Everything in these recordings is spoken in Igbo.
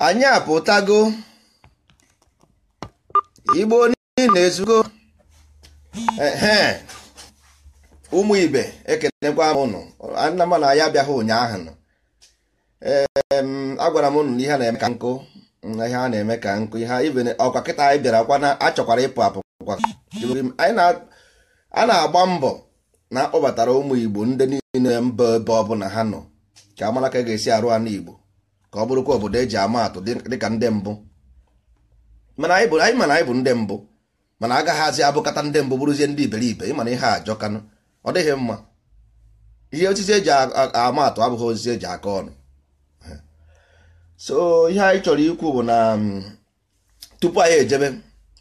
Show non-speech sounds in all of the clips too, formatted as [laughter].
anyị apụtago igbo na ezugo ụmụ ibe ekenekwa m ụnụ nna m na ya abịaghị ụnyaahụ nọ agwara m ụnụ na ihe na-eme ka nkụ ihe a na-eme ka nkụ ihe ibe ọkwa kịta anyị bịara na achọkwara ịpụ apụ a na-agba mbọ na akpọbatara ụmụ igbo ndị niile mba ebe ọbụla ha nọ ka amara ka ga-esi arụ anụ Igbo ka ọ bụrụkwa obodo eji ama atụ dịka ndị mbụ mana anyị ma na anyị bụ ndị mbụ mana agaghịzi abụkata ndị mbụ bụrụzie ndị iberibe ịmana ihe ajọkanụ ọ dịghị mma ihe osisi eji ama atụ abụghị osisi eji aka ọnụ so ihe anyị chọrọ ikwu bụ na mm, tupu anyị ejebe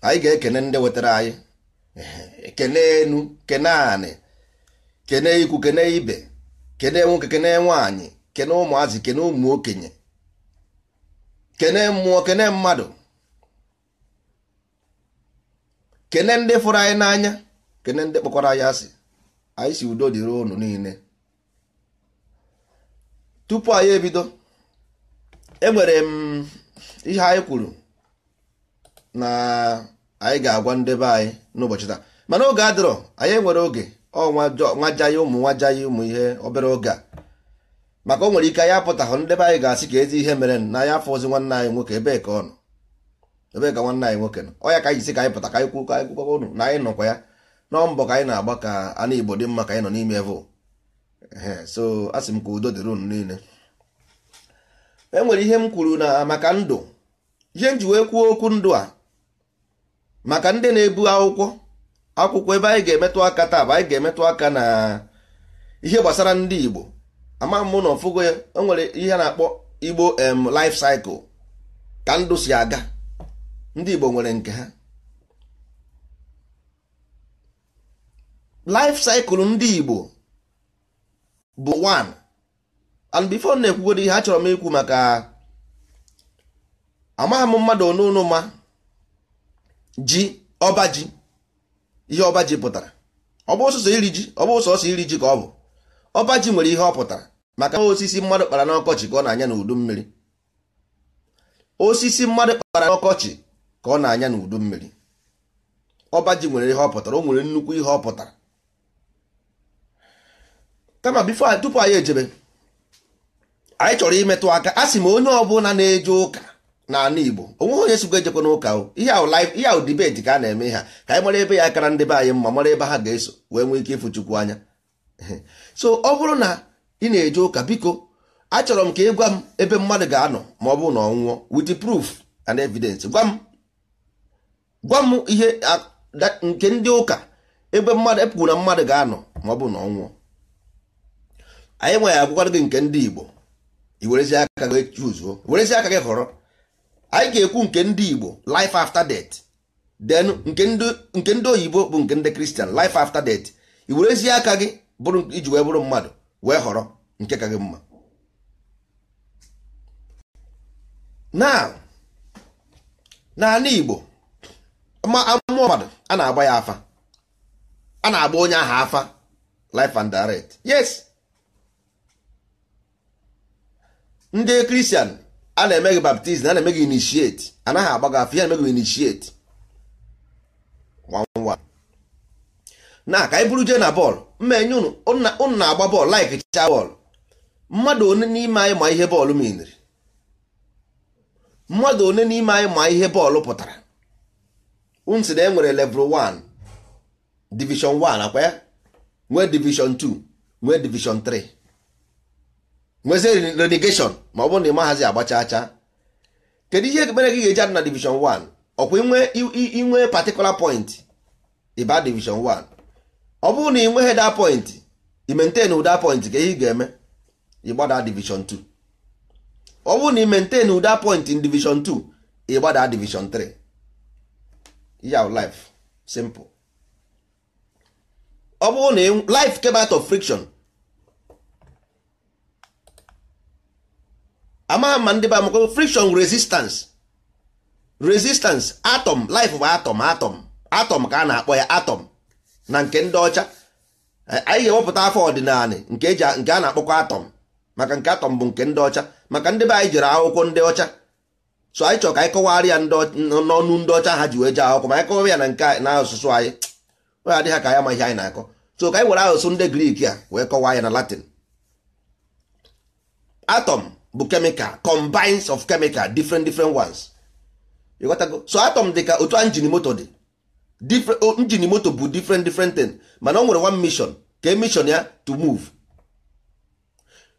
anyị ga-ekene ndị wetara anyị kene enu kene anị kene ikwu kene ibe kene nwoke kene nwaanyị kene ụmụazị kene ụmụ okenye kene mmụọ kene mmadụ kene ndị fụrụ anyị n'anya kene ndị kpọkwara anyị asị anyị si udo dịrị ụnụ niile tupu anyị ebido enwere m ihe anyị kwuru na anyị ga-agwa ndebe anyị n'ụbọchị taa mana oge adịrọ anyị nwere oge nwajaghị ụmụ nwajaghị ụmụ ihe obere oge a maka o nwere ike anyị apụtahụ ndị be anyị ga-asị ka ezi ihe mere na anyị afọ ozi nwanne anyị nwoke ebee ka ọ nọ Ebe ka nwanne anyị nwoke nọ ọ ya ka anyị si ka anyị pụta ka anyị kwuo ka anyị kwukwa unu na anyị nọkwa ya nọọ mbọ ka anyị na-agba ka anụ Igbo dị mma ka anyị nọ n'ime vụ so a sị m ka udo dịrị unu niile e nwere ihe m kwuru na maka ndụ ihe m ji wee kwuo okwu ndụ a maka ndị na-ebu akwụkwọ akwụkwọ ebe anyị ga-emetụ aka taa bụ anyị ga-emetụ aka na ihe gbasara ndị Igbo ama mụ na ọfụgo ya o nwere ihe na-akpọ Igbo em life cycle ka ndụ si aga ndị Igbo nwere nke ha life cycle ndị Igbo bụ 1 and before na-ekwugodo ihe achọrọ m ikwu maka amaghị m mmadụ onunu ma ji ọba ji ihe ọba ji pụtara ọ iri ji iri ji ka ọ bụ ọba ji nwere ihe ọ pụtara maka osisi mmadụ kpara n'ọkọchị ka ọ na-anya n'udu mmiri osisi mmadụ kpara n'ọkọchị ka ọ na-anya n'udu mmiri ọba ji nwere ihe ọ pụtara o nwere nnukwu ihe ọ pụtara kama bifo tupu anyị ejebe anyị chọrọ imetụ aka a sị m onye ọbụla na-eje ụka n'ala Igbo onweghị onye sikwa ejekwa n'ụka ihe ahụ dibeti ka a na-eme ha ka anyị mara ebe ya kara ndị be anyị mma mara ebe ha ga-eso wee nwee ike ịfụ Chukwu anya [laughs] so ọ bụrụ na ị na-eje ụka biko achọrọ m ka ị gwa m ebe mmadụ ga-anọ ma ọ bụrụ na ọ nwụọ with proof and evidence gwa m gwa m ihe nke ndị ụka ebe mmadụ epụkwụ na mmadụ ga-anọ ma ọ bụ na ọ nwụọ anyị nwe ya agwụkwara gị nke ndị Igbo i aka gị chuzuo werezi aka gị họrọ anyị ga-ekwu nke ndị Igbo life after death then nke ndị oyibo bụ nke ndị kristian life after death i werezie aka gị bụrụ iji wee bụrụ mmadụ wee họrọ nke ka gị mma na Igbo ma mmụọ mmadụ a na-agba ya afa a na-agba onye ahụ afa life and death yes ndị kristian. a na-eme gị baptizim a na-eme gị initiate anaghị agba gị afọ ihe na-eme gị initiate na ka anyị bụrụ jee na bọọlụ mma enye ụnụ na-agba bọọlụ laik chịcha bọọlụ mmadụ one n'ime anyị ma ihe bọọlụ miniri mmadụ one n'ime anyị ma ihe bọọlụ pụtara unsi na e nwere level 1 division 1 akwa ya nwee division 2 nwee division 3 nwezie renegation ma ọ bụrụ na ị maghazi agbacha acha kedu ihe mere gị ga-eji adị na division 1 ọkwa inwe particular point ịba e division 1 ọ bụrụ na ị nweghị da point ị ụda point ka ị ga-eme ịgbada division 2 ọ bụrụ na ị ụda point in division 2 ịgbada division 3 yaw life simple ọ bụrụ na life of friction ama ama ndị be amakwa friction resistance resistance atom life bụ atom atom atom ka a na-akpọ ya atom na nke ndị ọcha eh, anyị ga-ewepụta afọ ọdịnala nke a na-akpọkwa atom maka nke atọm bụ nke ndị ọcha maka ndị be anyị jere akwụkwọ ndị ọcha so anyị chọrọ ka anyị kọwara ya n'ọnụ ndị ọcha ha ji wee jee akwụkwọ ma anyị kọwara ya na nke na asụsụ anyị onye adịghị ka ya amaghị anyị na-akọ so ka anyị were asụsụ ndị grik a wee kọwaa ya na latin atọm bụ chemical combines of chemical different different ones you got go so atom dị ka otu engine moto dị different moto bụ different different thing mana ọ nwere one mission ka e mission ya to move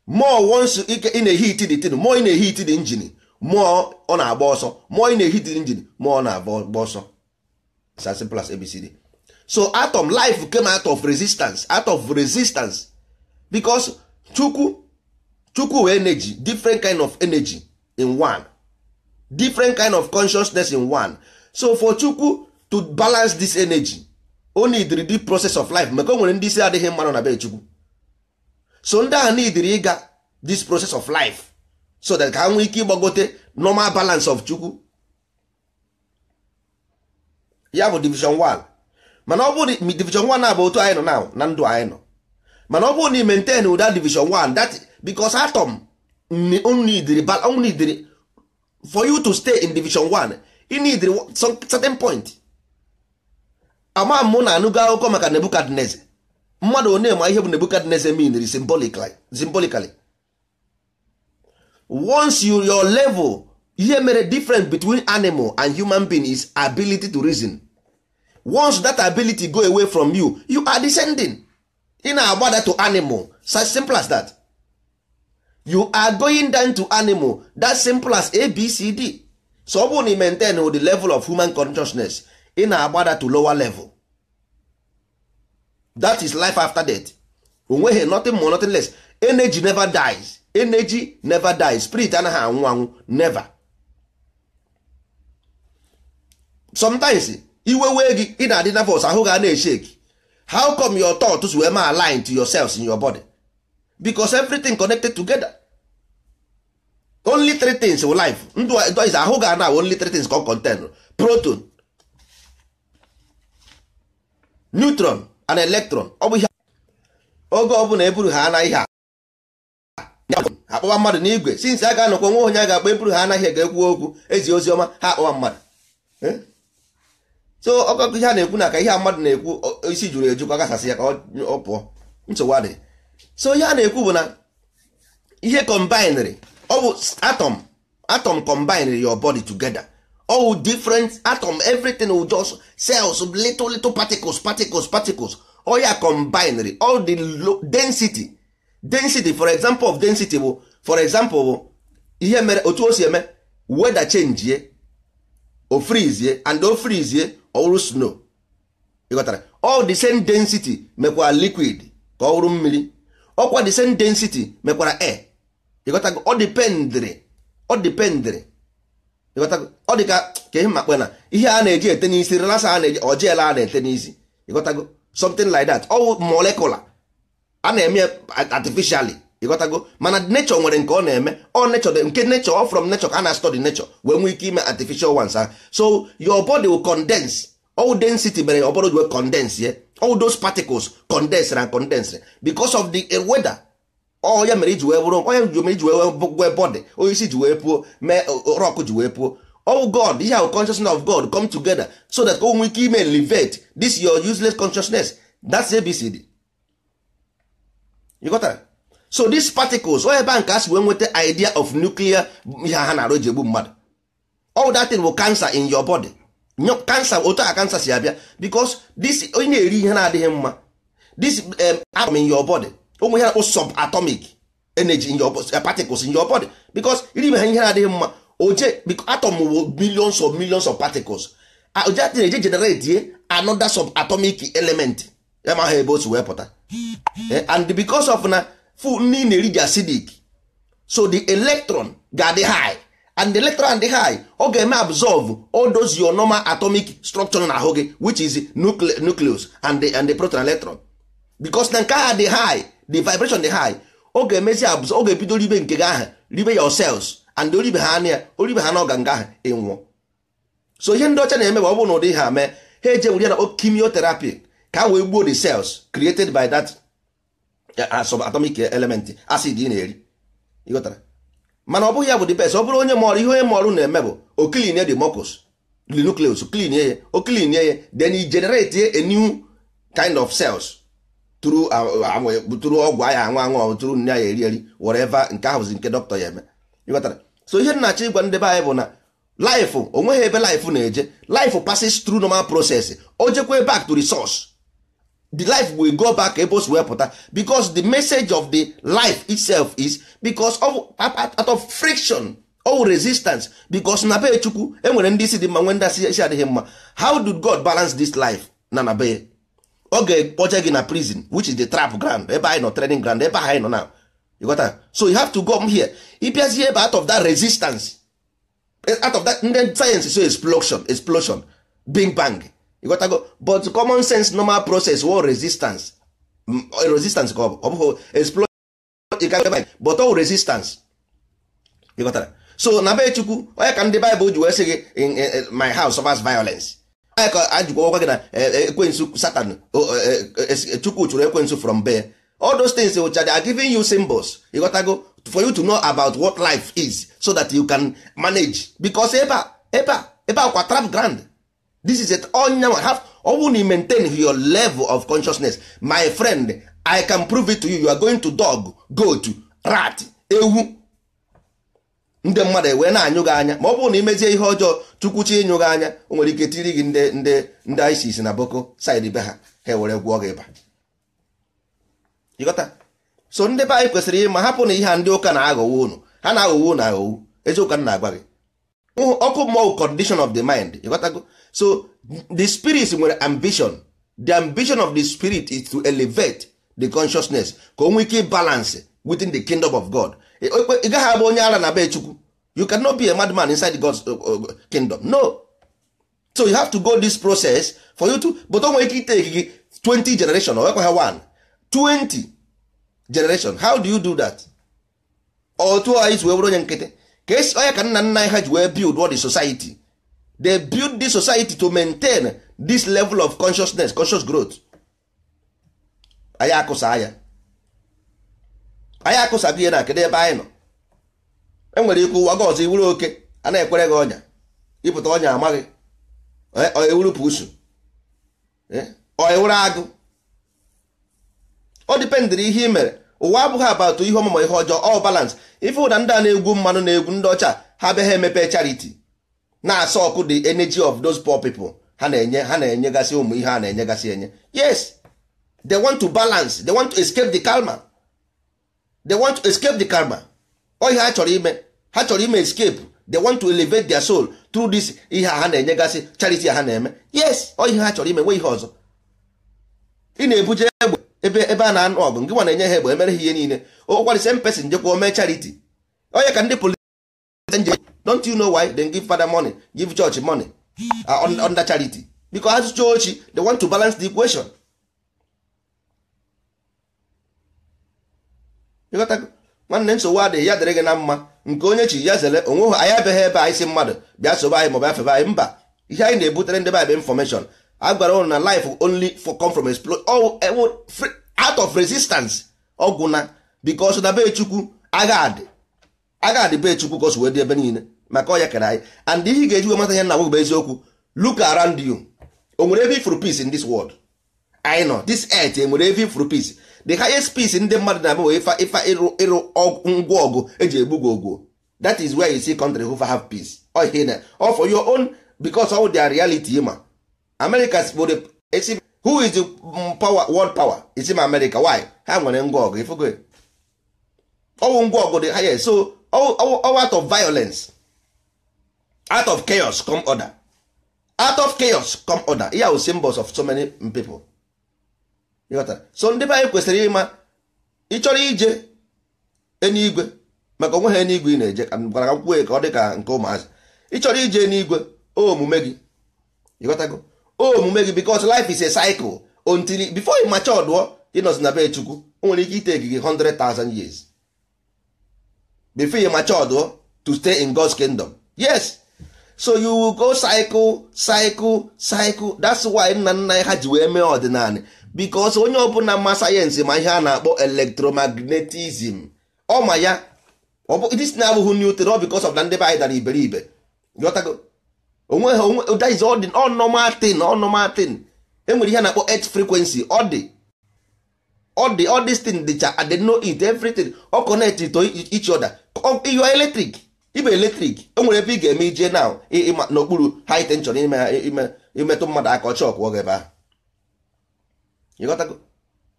more once ị na-ehi iti the tin more ị na-ehi iti the engine more ọ na-agba ọsọ more ị na-ehi iti the engine more ọ na-agba ọsọ it's as as abcd so atom life came out of resistance out of resistance because chukwu chukwu energy different kind of energy in one different kind of consciousness in one so for chukwu to balance this energy o neediri the process of life maka ndi nwere ndị isi adịghị mmanụ na be chukwu so ndị a neediri ịga this process of life so that ka ha nwee ike ịgbagote normal balance of chukwu ya bụ division 1 mana ọ bụrụ division 1 na bụ otu anyị nọ na ndụ anyị nọ mana ọ bụrụ na ị maintain ụda division 1 that because atom need for you to stay in division 1 you need certain point ama mụ na anụgo akụkọ maka nebukadneze mmadụ onye ma ihe bụ nebukadneze mean symbolically once you your level ihe mere difference between animal and human being is ability to reason once that ability go away from you you are descending ị na-agbada to animal such simple as that. you are going down to animal that simple as abcd so ọ bụrụ na maintain with the level of human consciousness ị na-agbada to lower level that is life after death onweghị nothing more nothing less energy never dies energy never dies spirit anaghị anwụ anwụ never sometimes iwe wee gị ị na-adị nervous ahụ ga na-eshake how come your thoughts wee ma align to yourselves in your body because everything connected together only three things wụ life ndụ is ahụ ga na only three things ka ọ contain proton neutron and electron ọ bụ ihe oge ọ bụla eburu ha anaghị ha akpọwa mmadụ n'igwe since a ga-anọkwa nwa onye a ga-akpọ eburu ha anaghị ga ekwu okwu ezi ozi ọma ha akpọwa mmadụ so ọkọkọ ihe a na-ekwu na ka ihe a mmadụ na-ekwu isi juru eju ka ọ gasasị ya ka ọ pụọ nsogbu adịghị so ihe a na-ekwu bụ na ihe combined ọ atom atom your body together all different atom everything will just cells little little particles particles particles all ya combined all the low density density for example of density bụ for example bụ ihe mere otu o si eme weather change ye o freeze and o freeze ye ọ snow ịghọtara all the same density mekwa liquid ka ọ wụrụ mmiri ọkwa the same density mekwara e ịghọtago ọ dipendịrị ọ ọ ka ihe makpe na ihe a na-eji ete n'isi relasa a na-eji ojiela a na-ete n'isi ịghọtago something like that ọ molecular a na-eme artificially ịghọtago mana nature nwere nke ọ na-eme ọ nature nke nature ọ from nature ka a na-study nature wee nwee ike ime artificial ones ha so your body will condense all density mere ọ bụrụ condense ye all those particles condensed and condensed because of the eh, weather ọ ya mere iji wee bụrụ onye ji mere iji wee bọdị onye isi ji wee puo mee rọk ji wee puo oh god ihe ahụ consciousness of god come together so that o oh, nwee ike ime elevate this your useless consciousness that's abcd you got that? so these particles onye ebe a nke a si wee nweta idea of nuclear ihe ha na-arụ ji egbu mmadụ all that thing will cancer in your body kansa otu a kansa si abịa because this onye na-eri ihe na-adịghị mma this um, atom in your body ụmụ ihe na-akpụ subatomic energy in your eh, particles in your body because iri ha ihe na-adịghị mma oje atom bụ millions of millions of particles oje atị na-eje generate another subatomic element ya ma ha ebe o si wee pụta eh, and because of na food nri na-eri dị acidic so the electron ga-adị high and the electron dị high ọ ga-eme absorb all those your normal atomic structure na ahụ gị which is nucleus and the, and the proton electron because na nke ha dị high the vibration dị high ọ ga-emezi absorb ọ ga-ebido ribe nke gị ahụ ribe your cells and oribe ha na oribe ha na nga ahụ ịnwụọ so ihe ndị ọcha na-eme bụ ọ bụrụ na ụdị ha mee ha eje were ya na chemotherapy ka a wee gbuo the cells created by that subatomic element acid ị na-eri ịghọtara mana ọ bụghị ya bụ dị best ọ bụrụ onye mọrụ ihe onye mọrụ na-eme bụ oklinie de mucus the nucleus klinie ya oklinie ya then e generate a new kind of cells tụrụ uh, uh, ọgwụ aya anwụ anwụ tụrụ nne ya eri eri whatever nke ahụzi nke dọkịta ya eme ịghọtara so ihe na ịgwa ndị be anyị bụ na life onweghị ebe life na-eje life passes through normal process o jekwe back to the the life will go back ebe wee pụta because the message of the life itself is because of out of friction or resistance because na be chukwu enwere ndị isi dị mma nwe ndị isi adịghị mma how did god balance this life na na be ọ ga-ekpoje gị na prison which is the trap ground ebe anyị nọ training ground ebe anyị nọ now you got that so you have to come here ịbịazie ebe out of that resistance out of that ndị sayensị so explosion explosion bing bang ịghọtago but common sense normal process wo resistance mm, resistance ka ọ bụghị exploit but all resistance ịghọtara so na be chukwu onye ka ndị bible ji wee sị gị my house suffers violence onye ka ajụkwa ọkwa gị na ekwensu satan oh, eh, eh, eh, chukwu chụrụ ekwensu from be all those things which are giving you symbols ịghọtago for you to know about what life is so that you can manage because ebe a ebe a ebe a kwa trap grand this is it onyanwa have ọwụ na maintain your level of consciousness my friend i can prove it to you you are going to dog goat rat ewu ndị mmadụ wee na-anyụ gị anya ma ọ bụrụ na imezie ihe ọjọọ chukwuchi ịnyụ gị anya o nwere ike tiri gị ndị ndị ndị isis na boko side be ha ha ewere gwụọ gị ịba ịghọta so ndị be anyị kwesịrị ịma hapụ na ihe a ndị ụka na-aghọwo unu ha na-aghọwo unu aghọwo eziokwu na-agwa gị ọkụ mmụọ condition of the mind ịghọtago so the spirit nwere ambition the ambition of the spirit is to elevate the consciousness ka o nwee balance within the kingdom of god e, e, ị gaghị abụ onye ara na be chukwu you cannot be a madman inside god's uh, uh, kingdom no so you have to go this process for you to but o nwere ike iteki gị 20 generation or ekweghị 1 20 generation how do you do that otu anyị ji wee bụrụ onye nkịtị ka esi onye ka nna nna anyị ha ji wee build what the society they build this society to maintain this level of consciousness conscious growth anyị akụsa anya anyị akụsago ihe na kedu ebe anyị nọ enwere ikwu ụwa gị ọzọ iwuru oke a na-ekwere gị ọnya ịpụta ọnya amaghị ewuru pusu agụ o dipendịrị ihe ị mere ụwa abụghị abatụ ihe ọmụmụ ihe ọjọọ ọ balance ife ụda ndị a na-egwu mmanụ na-egwu ndị ọcha ha be emepe charity na-asa ọkụ the energy of those poor people ha na-enye ha na-enyegasị ụmụ ihe a na-enyegasị enye yes they want to balance they want to escape the karma they want to escape the karma oihe ha chọrọ ime ha chọrọ ime escape they want to elevate their soul through this ihe a ha na-enyegasị charity ha na-eme yes oihe ha chọrọ ime nwee ihe ọzọ ị na-ebuje egbe ebe ebe a na-anụ ọgụ nke nwa na-enye ha egbe emere ha ihe niile ụkwarị same person jekwa o mee charity onye ka ndị politik don't you know why they give father money give church money uh, charity because as church they want to balance the equation nwanne nsogbu adịghị ya dịrị gị na mma nke onye chi ya zere onwe ha anyị abịaghị ebe anyị si mmadụ bịa sobe anyị maọbụ afebe anyị mba ihe anyị na-ebutere ndị baịbụl infọmeshọn a gwara ụnụ na life only for come from oh, eh, out of resistance ọgwụ na because na be chukwu agha adị agha adị be chukwu ka wee dị ebe niile maka ọya kere anyị and ihe ị ga-ejiwe mata ihe na bụ eziokwu look around you o nwere every for peace in this world anyị nọ this earth enwere every for peace the highest peace ndị mmadụ na-abụ ifa iru ịrụ ngwa ọgụ eji egbu gị ogwo that is where you see country who have peace all for your own because all their reality ma Americas who is the mm, power world power is ma America why ha nwere ngwa ọgụ ifugo ọwụ ngwa ọgụ dị ha so all out of violence out of chaos come order out of chaos come order ihe ahụ symbols of so many people so ndị be anyị kwesịrị ịma ịchọrọ ije eluigwe maka onwe ha eluigwe ị na-eje ka gwara kwue ka ọ dị ka nke ụmụazị ịchọrọ ije eluigwe omume gị ịghọtago omume gị because life is a cycle until before ị macha ọdụọ ịnọzi na be chukwu o nwere ike ite gị 100,000 years before ị macha ọdụọ to stay in God's kingdom yes so you will go cycle cycle cycle that's why nna nna ha ji wee mee ọdịnala because onye ọbụla ma sayensị ma ihe a na-akpọ ọ ma ya this na abụghị new theory because of na ndị be anyị dara iberibe ghọtago onwe ha onwe that is all normal thing all normal thing enwere ihe a na-akpọ earth frequency ọ dị ọ dị all this dịcha I dey know it everything ọ connect to each other you are ibe eletrik enwere ebe ị ga-eme ije na n'okpuru high tension imetụ mmadụ aka ọchị ọkwụ oge ebe ahụ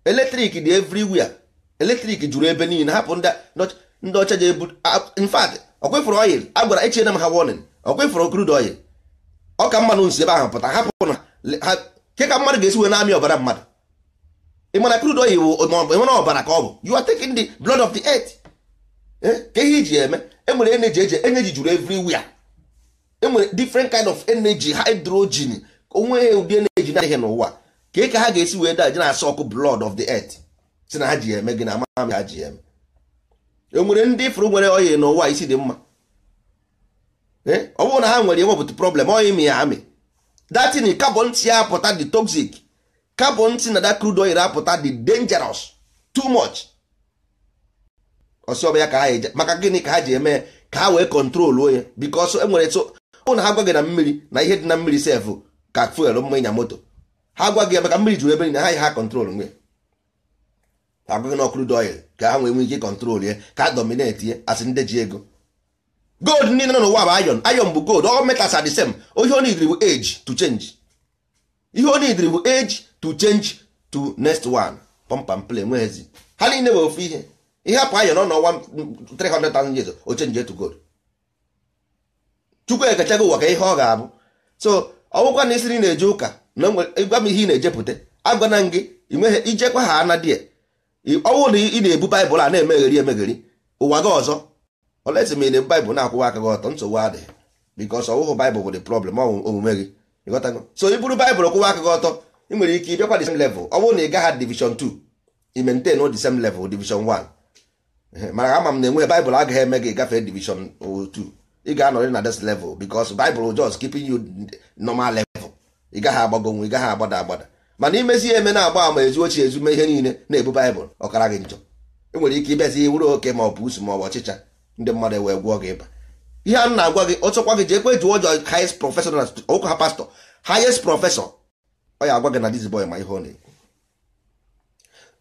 eletrik dị everywhere eletrik juru ebe niile hapụ ndị ọcha ji ebu in fact ọkwefụrụ oil a gwara echiena m ha warning ọkwefụrụ crude oil ọka mmanụ nsi ebe ahụ pụta hapụ na ha ke ka mmadụ ga-esi na-amị ọbara mmadụ ịmana crude oil bụ enwere ọbara ka ọ bụ you are taking the blood of the earth eh? ka ihe iji eme enwere energy eji energy juru everywhere enwere different kind of energy hydrogen onwe ha ụdị energy na-adịghị n'ụwa ka ị ka ha ga-esi wee daje na-asa ọkụ blood of the earth si na ha ji eme gị na ama ha ji eme enwere ndị ifuru nwere oyi n'ụwa isi dị mma eh? ọ bụrụ na ha nwere enwepụta problem oyi mi ya amị datin carbon ti apụta dị toxic carbon ti na da crude oil apụta dị dangerous too much ọsọ ya ka ha eje maka gịnị ka ha ji eme ka ha wee kọntroluo ya bikos e nwere ụna ha gwa gị na mmiri na ihe dị na mmiri sefụ ka fuel mma ịnya moto ha gwa gị maka mmiri juru ebe na ha yi ha kọntrol nwe agwaghị na ọkụrụ doil ka ha nwee nwee ike kọntrol ya ka ha domineti ya asị ndị ji ego gold niile nọ n'ụwa bụ ayon ayon bụ gold ọ metals are the same ihe o nidiri bụ age to change ihe o nidiri bụ age to change to next one pọmpam play nweghezi ha niile bụ ofu ihe ihe apụ ayọ nọ n'ọnwa 300,000 years o change to gold chukwu ekechago ụwa ka ihe ọ ga-abụ so ọwụkwa na isiri na-eje ụka na gwa m ihe ị na-ejepụta agwana m gị inweghị ijekwa ha ana die ọnwụ na ị na-ebu baịbụl a na-emegheri emegheri ụwa gị ọzọ olesi ma ị na-ebu baịbụl na-akwụwa aka gị ọtọ nsogbu adịghị bikos ọwụhụ baịbụl bụ dị problem ọnwụ omume gị ịghọtago so i buru baịbụl kwụwa aka gị ọtọ ị nwere ike ịbịakwa the level ọ bụrụ na ị gaghị division 2 i maintain the same level division 1 Eh, mana ama m na enweghị baịbụl agaghị eme gị gafe divishon otu ị ga-anọrị na this level because baịbụl just keeping you normal level ị gaghị agbago nwe ị gaghị agbada agbada mana imezi eme na-agba ama ezu ochie ezume ihe niile na-ebu baịbụl ọkara gị njọ enwere ike ịbịazi wuru oke ma ọ bụ usu ma ọ bụ ọchịcha ndị mmadụ wee gwụọ gị ịba ihe a na-agwa gị ọchọkwa gị jee kwe jụọ ọjọọ highest professor na ụka ha pastọ highest professor ọ ya agwa gị na dis boy ma ihe ọ na-ekwu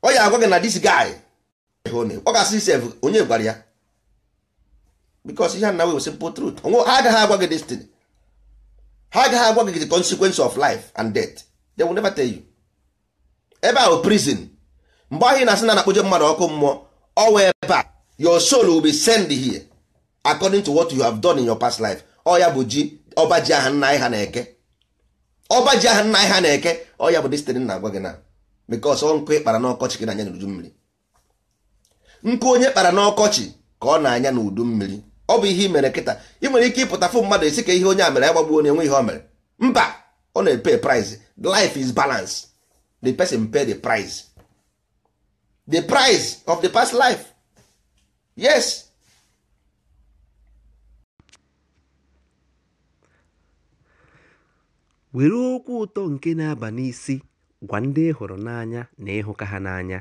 ọ agwa gị na this guy ọ ga-asị sef onye gwara ya because ihe na we simple truth ha agaghị agwa gị destiny ha agaghị agwa gị the consequence of life and death they will never tell you ebe ahụ prison mgbe ahụ ị na-asị na na-akpụje mmadụ ọkụ mmụọ ọwa ebe a your soul will be sent here according to what you have done in your past life ọ ya bụ ji ọba ji aha nna anyị ha na-eke ọba ji aha nna ha na-eke ọ ya bụ destiny na-agwa gị na ọ nkụ ịkpara n'ọkọchị gị na anya n'uju mmiri nkụ onye kpara n'ọkọchị ka ọ na-anya n'udu mmiri ọ bụ ihe i mere kịta ị nwere ike ịpụta fụ mmadụ esi ka ihe onye a mere agbagbuo na enwe ihe o mere mba ọ na-epe price life is balance the person pay the price the price of the past life yes were okwu ụtọ nke na-aba n'isi gwa ndị hụrụ n'anya na ịhụka ha n'anya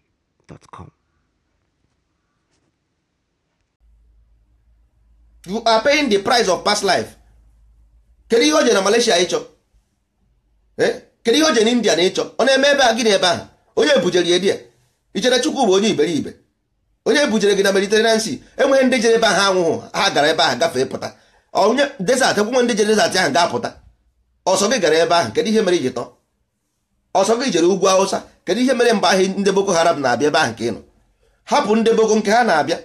You are paying the price of past life. Kedu ihe o je na Malaysia ịchọ? Kedu ihe o je na India na ịchọ? Ọ na-eme ebe a gị na ebe ahụ? Onye bujere ya dia? Ichere Chukwu bụ onye iberibe. Onye bujere gị na mediterenansi Sea enweghị ndị jere ebe ahụ anwụghụ ha gara ebe ahụ gafee pụta. Onye desert ekwunwe ndị jere desert ahụ ga-apụta. Ọsọ gị gara ebe ahụ kedu ihe mere iji tọọ? ọsọ gị jere ugwu awụsa kedu ihe mere mgbe ahụ ndị boko haram na-abịa ebe ahụ nke ị nọ hapụ ndị boko nke ha na-abịa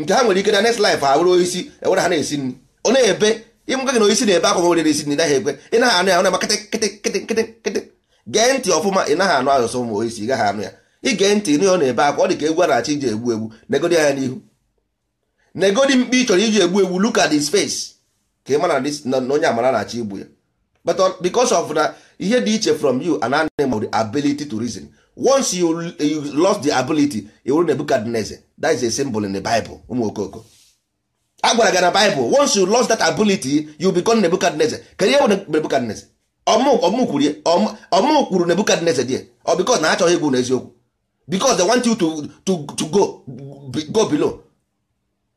nke ha nwere ike na next life awụrụ oisi ewere ha na-esi nri ọ na-ebe ịmụka gị na oisi na-ebe akwa nwere esi nri naghị ekwe ị naghị anụ ya ọ na-eme kịtị kịtị kịtị kịtị gee ntị ọfụma ị naghị anụ asụsụ ma oisi gaghị anụ ya ige ntị ịnụ ya ọ na-ebe akwa ọ dị ka egwu a na-achị iji egbu egbu negodi anya n'ihu negodi mkpi ị chọrọ iji egbu egbu look at face ka ị mara na onye amara na achị igbu ya but uh, because of na ihe dị iche from you an animal the ability to reason once you, you lost the ability iwuru Nebukadneze that is a symbol in the Bible ụmụ okoko a gwara gị na Bible once you lost that ability you become Nebukadneze kedu ihe bụ Nebukadneze ọmụ kwuru Nebukadneze di ọ because na achọghị egwu n'eziokwu because they want you to, to, to go, go below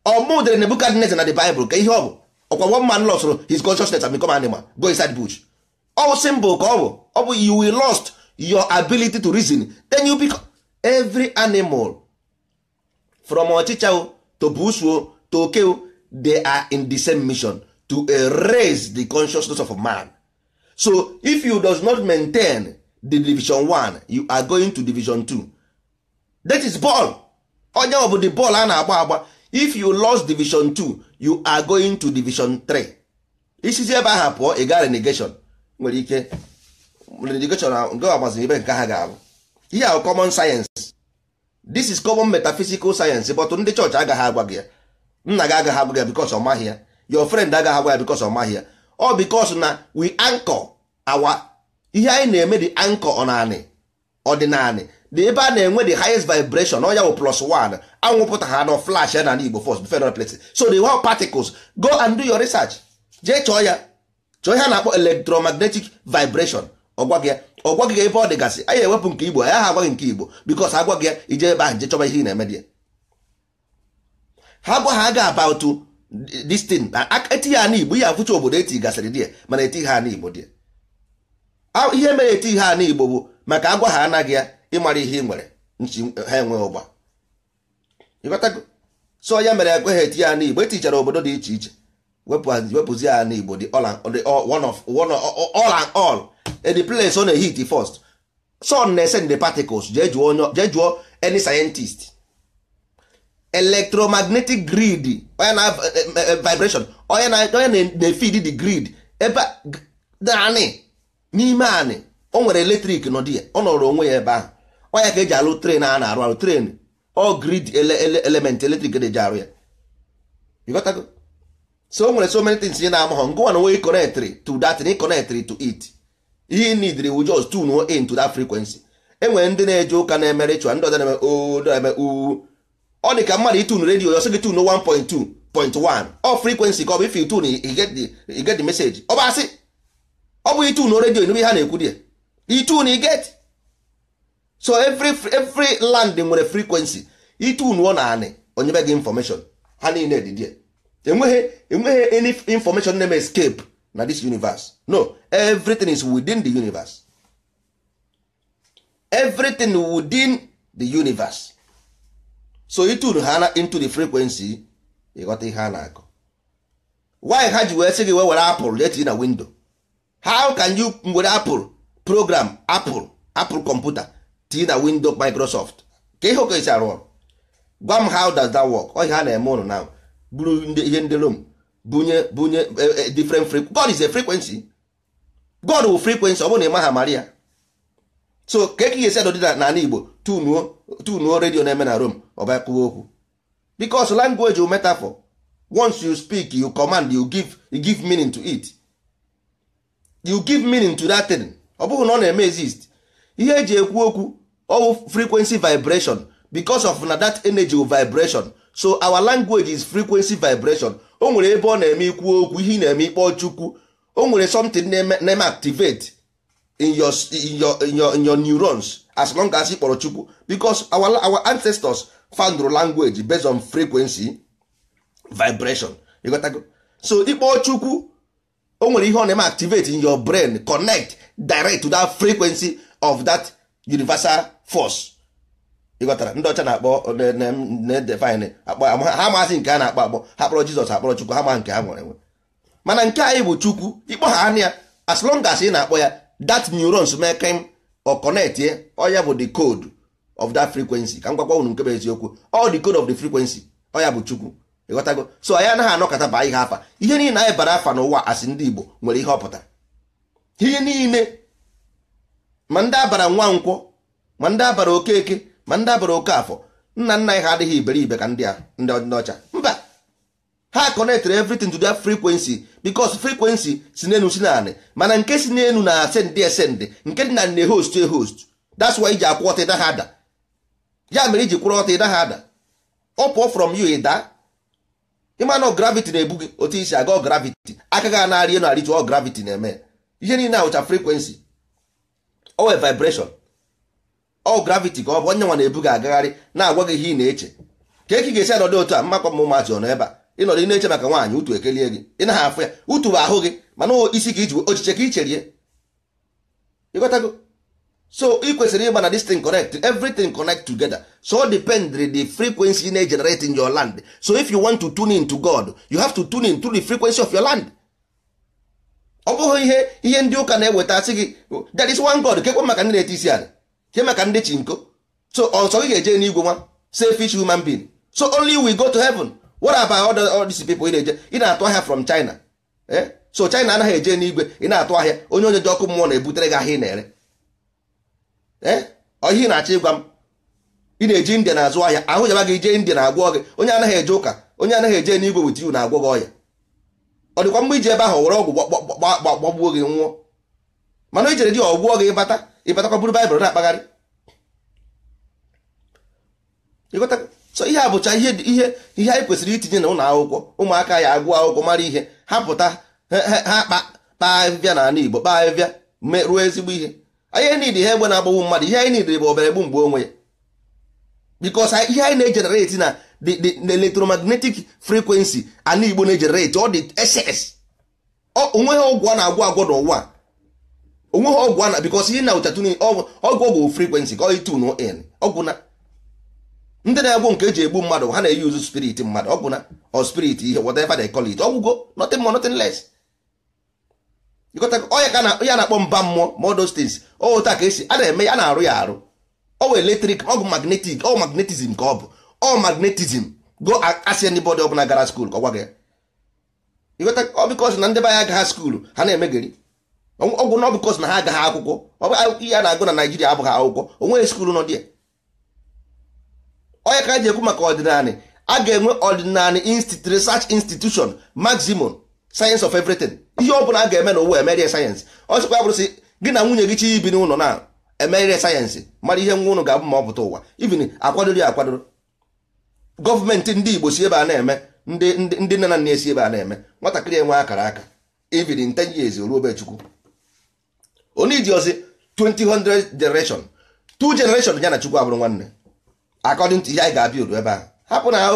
ọmụ dere Nebukadneze na the Bible ka ihe ọ bụ ọkwa one man lost his consciousness and become animal go inside bush ọ symbol ka ọ bụ ọ bụ you will lost your ability to reason then you become every animal from ọchịcha to bush to oke they are in the same mission to erase the consciousness of a man so if you does not maintain the division 1 you are going to division 2 that is ball onye ọ bụ the ball a na-agba agba if you lost division 2 you are going to division 3 isizi ebe aha pụọ ị gaa renegation nwere ike renegation nke ọgbaziri ebe nke ha ga-abụ ihe ahụ common science this is common metaphysical science but ndị chọọchị agaghị agwa gị ya nna gị agaghị agwa gị ya because ọ maghị ya your friend agaghị agwa ya because ọ maghị ya ọ because na we anchor awa ihe anyị na-eme dị anchor ọ naanị ọ dị naanị na ebe a na-enwe the highest vibration ọ wụ plus one anwụpụta ha na flash ya na igbo first before e places so the whole particles go and do your research jee chọọ ya chọọ ihe a na-akpọ electromagnetic vibration ọgwaghị ya ọgwaghị ya ebe ọ dịgasị anya ewepụ nke Igbo ya ha agwaghị nke Igbo because agwaghị ya ije ebe ahụ je chọba ihe ị na-eme dị ya ha gwa ha aga about distin thing eti ya n'Igbo ihe afụcha obodo eti gasịrị dị ya mana eti ha n'Igbo dị ya ihe mere eti ha n'Igbo bụ maka agwa ha anaghị ya ịmara ihe ị nwere ha enweghị ụgba so ya mere ekweghị eti ya n'igbo etichara obodo dị iche iche wepụzi ya n'igbo dị one of one all and all the place on na-ehit first sun na-ese the particles jee jụọ any scientist electromagnetic grid onye na eh, eh, vibration onye na-efid the grid ebe naanị n'ime anị o nwere eletrik nọ dị ya ọ nọrọ onwe ya ebe ahụ ọnya ka eji alụ tren a na-arụ arụ tren ọ grid element eletrik na-eji arụ ya ịghọtago so o nwere so many things nye na-ama ha ngụwa na nwe connect to that na connect to it ihe need wu just tune in to that frequency enwere ndị na-eje ụka na-eme ritual ndị ọzọ na-eme oo na-eme uu ọ dị ka mmadụ itun redio ọsọ gị tun 1.2 point 1 ọ frequency ka ọ bụ if you tune you get the ọ bụ asị ọ bụ itun redio n'ebe ha na-ekwu dị ya itun you so every every land nwere frequency itunu na anị onye be gị information ha niile dị enweghị enweghị any information name escape na this universe no everything is within the universe everything within the universe so itunu ha into the frequency ịghọta ihe a na-akọ why ha ji wee sị gị were apụl jetinye na window how can you were apụl program apụl apụl computer. tinye na window microsoft ka ihe oke esi arụ ọrụ gwa m how does that work ọ ihe a na-eme ụnụ na buru ihe ndị rom bunye bunye e, e, different frequency god is a frequency god wu frequency ọ bụrụ na ị maria so ka eke esi adọ dị n'ala igbo tunuo tunuo redio na-eme na rom ọba kwuo okwu because language metafor once you speak you command you give you give meaning to it you give meaning to that thing ọ bụghị na ọ na-eme exist ihe eji ekwu okwu all frequency vibration because of na that energy vibration so our language is frequency vibration o nwere ebe ọ na-eme ikwu okwu ihe na-eme ikpọ chukwu o nwere something na-eme activate in your, in your, in your, in your neurons as long as ị chukwu because our, our ancestors found language based on frequency vibration you got so ịkpọ chukwu o nwere ihe ọ na-eme activate in your brain connect direct to that frequency of that universal force ịghọtara ndị ọcha na-akpọ na-edefine ha masị nke a na-akpọ akpọ ha kpọrọ jizọs akpọrọ chukwu ha ma nke ha nwere nwe mana nke anyị bụ chukwu ịkpọ ha anya ya as long as ị na-akpọ ya that neurons mekem ọ connect ye ọya bụ the code of that frequency ka m gwakwa unu nke bụ eziokwu all the code of the frequency ọya bụ chukwu ịghọtago so anyị anaghị anọkọta baa ihe afa ihe niile anyị bara afa n'ụwa asị ndị igbo nwere ihe ọpụta ihe niile ma ndị abara nwa nkwọ ma ndị abara okeke ma ndị abara oke afọ nna nna anyị ha adịghị iberibe ka ndị ndị ọcha mba ha connectere everything to their frequency because frequency si n'enu si naanị mana nke si n'enu na ascend ascend nke dị na nne host e host that's why iji akwụ ọta ịda ha ada ya mere iji kwụrụ ọta ịda ha ada ọ pụọ from you ịda ịmanụ gravity na-ebu gị otu isi aga gravity aka gị anarị enu arịtụ ọ gravity na-eme ihe niile ahụcha frequency owe vibration ọ graviti ka ọ bụ onye nwa na-ebu gị agagharị na-agwa gị ihe ị na-eche ka eki ga-esi anọdụ otu a mmakwa m ụmụazị ọnọ ebe a ịnọdụ ị na-eche maka nwaanyị utu ekelie gị ị naghị afụ ya utu bụ ahụ gị mana isi ka iji ochiche ka i cherie ịghọtago so ị kwesịrị ịgba na this thing connect everything connect together so depend the frequency you generate in your land so if you want to tune in to God you have to tune in to the frequency of your land ọ bụghị ihe ihe ndị ụka na-eweta sị gị oh, that is one God kekwa maka ndị na-ete isi ala ihe maka ndị chi so ọsọ gị ga-eje n'igwe nwa selfish human being so only we go to heaven what about all these people ị na-eje ị na-atụ ahịa from China eh so China anaghị eje n'igwe ị na-atụ ahịa onye onye ji ọkụ mmụọ na-ebutere gị ahịa ị na-ere ee eh? ihe ị na-achọ ịgwa m ị na-eji India na-azụ ahịa ahụ jaba gị jee India na-agwọ gị onye anaghị eje ụka onye anaghị eje n'igwe wit you na-agwọ gị ọya ọ dịkwa mgbe iji ebe ahụ were ọgwụ gbagbuo gị nwụọ mana o jere oh, oh, ah, eh, di ọgwụọ gị ịbata ịbatakwa buru baịbụl na-akpagharị so ihe a bụcha ihe ihe anyị kwesịrị itinye na ụlọ akwụkwọ ụmụaka ya agụọ akwụkwọ mara ihe ha pụta ha kpaa ahịhịa na ala Igbo kpaa ahịhịa ruo ezigbo ihe anyị niile ihe egbe na-agbagbu mmadụ ihe anyị niile bụ obere gbu mgbe onwe ya bikos ihe anyị na-ejenereti na the electromagnetic frequency ala Igbo na-ejenereti ọ dị ss onwe ha ọ na-agwọ agwọ n'ụwa onweghị ọgwụ ana because ihe na ụchatun ọgwụ ọgwụ frequency ka ọyị tunu in ọgwụ na ndị na-egbu nke eji egbu mmadụ ha na-eyi uzu spirit mmadụ ọgwụ na or spirit ihe whatever they call it ọgwụgo nothing more nothing less ya na-akpọ mba mmụọ ma those things otu a ka esi a na-eme ya na-arụ ya arụ ọwụ eletrik ọgwụ magnetik ọ magnetizm ka ọ bụ ọ magnetizm go asị anybody ọbụla gara skuul ka ọ gwa gị ọ bịkọs na ndị be anya agaghị ha na-emegeri ọgwụ na ọ na ha agaghị akwụkwọ ihe a na-agụ na naijiria abụghị akwụkwọ onweghị skuulu nọ dị onye ka ji ekwu maka ọdịnala a ga-enwe ọdịnala research institution maximum science of everything ihe ọ bụla a ga-eme n'ụwa emerie sayensị ọ sịkwa ya bụrụ gị na nwunye gị chi ibi n'ụlọ na emerie sayensị mara ihe nwa ụnụ ga-abụ ma ọ pụta ụwa ibin akwadoro ya akwadoro gọọmenti ndị igbo si ebe a na-eme ndị nne na nna esi ebe a na-eme nwatakịrị enwe akara aka ibin 10 years ruo obe chukwu onijiọzi 2000 generation two generation ya na chukwu abụrụ nwanne according to ihe anyị ga-abịa ebe a hapụ na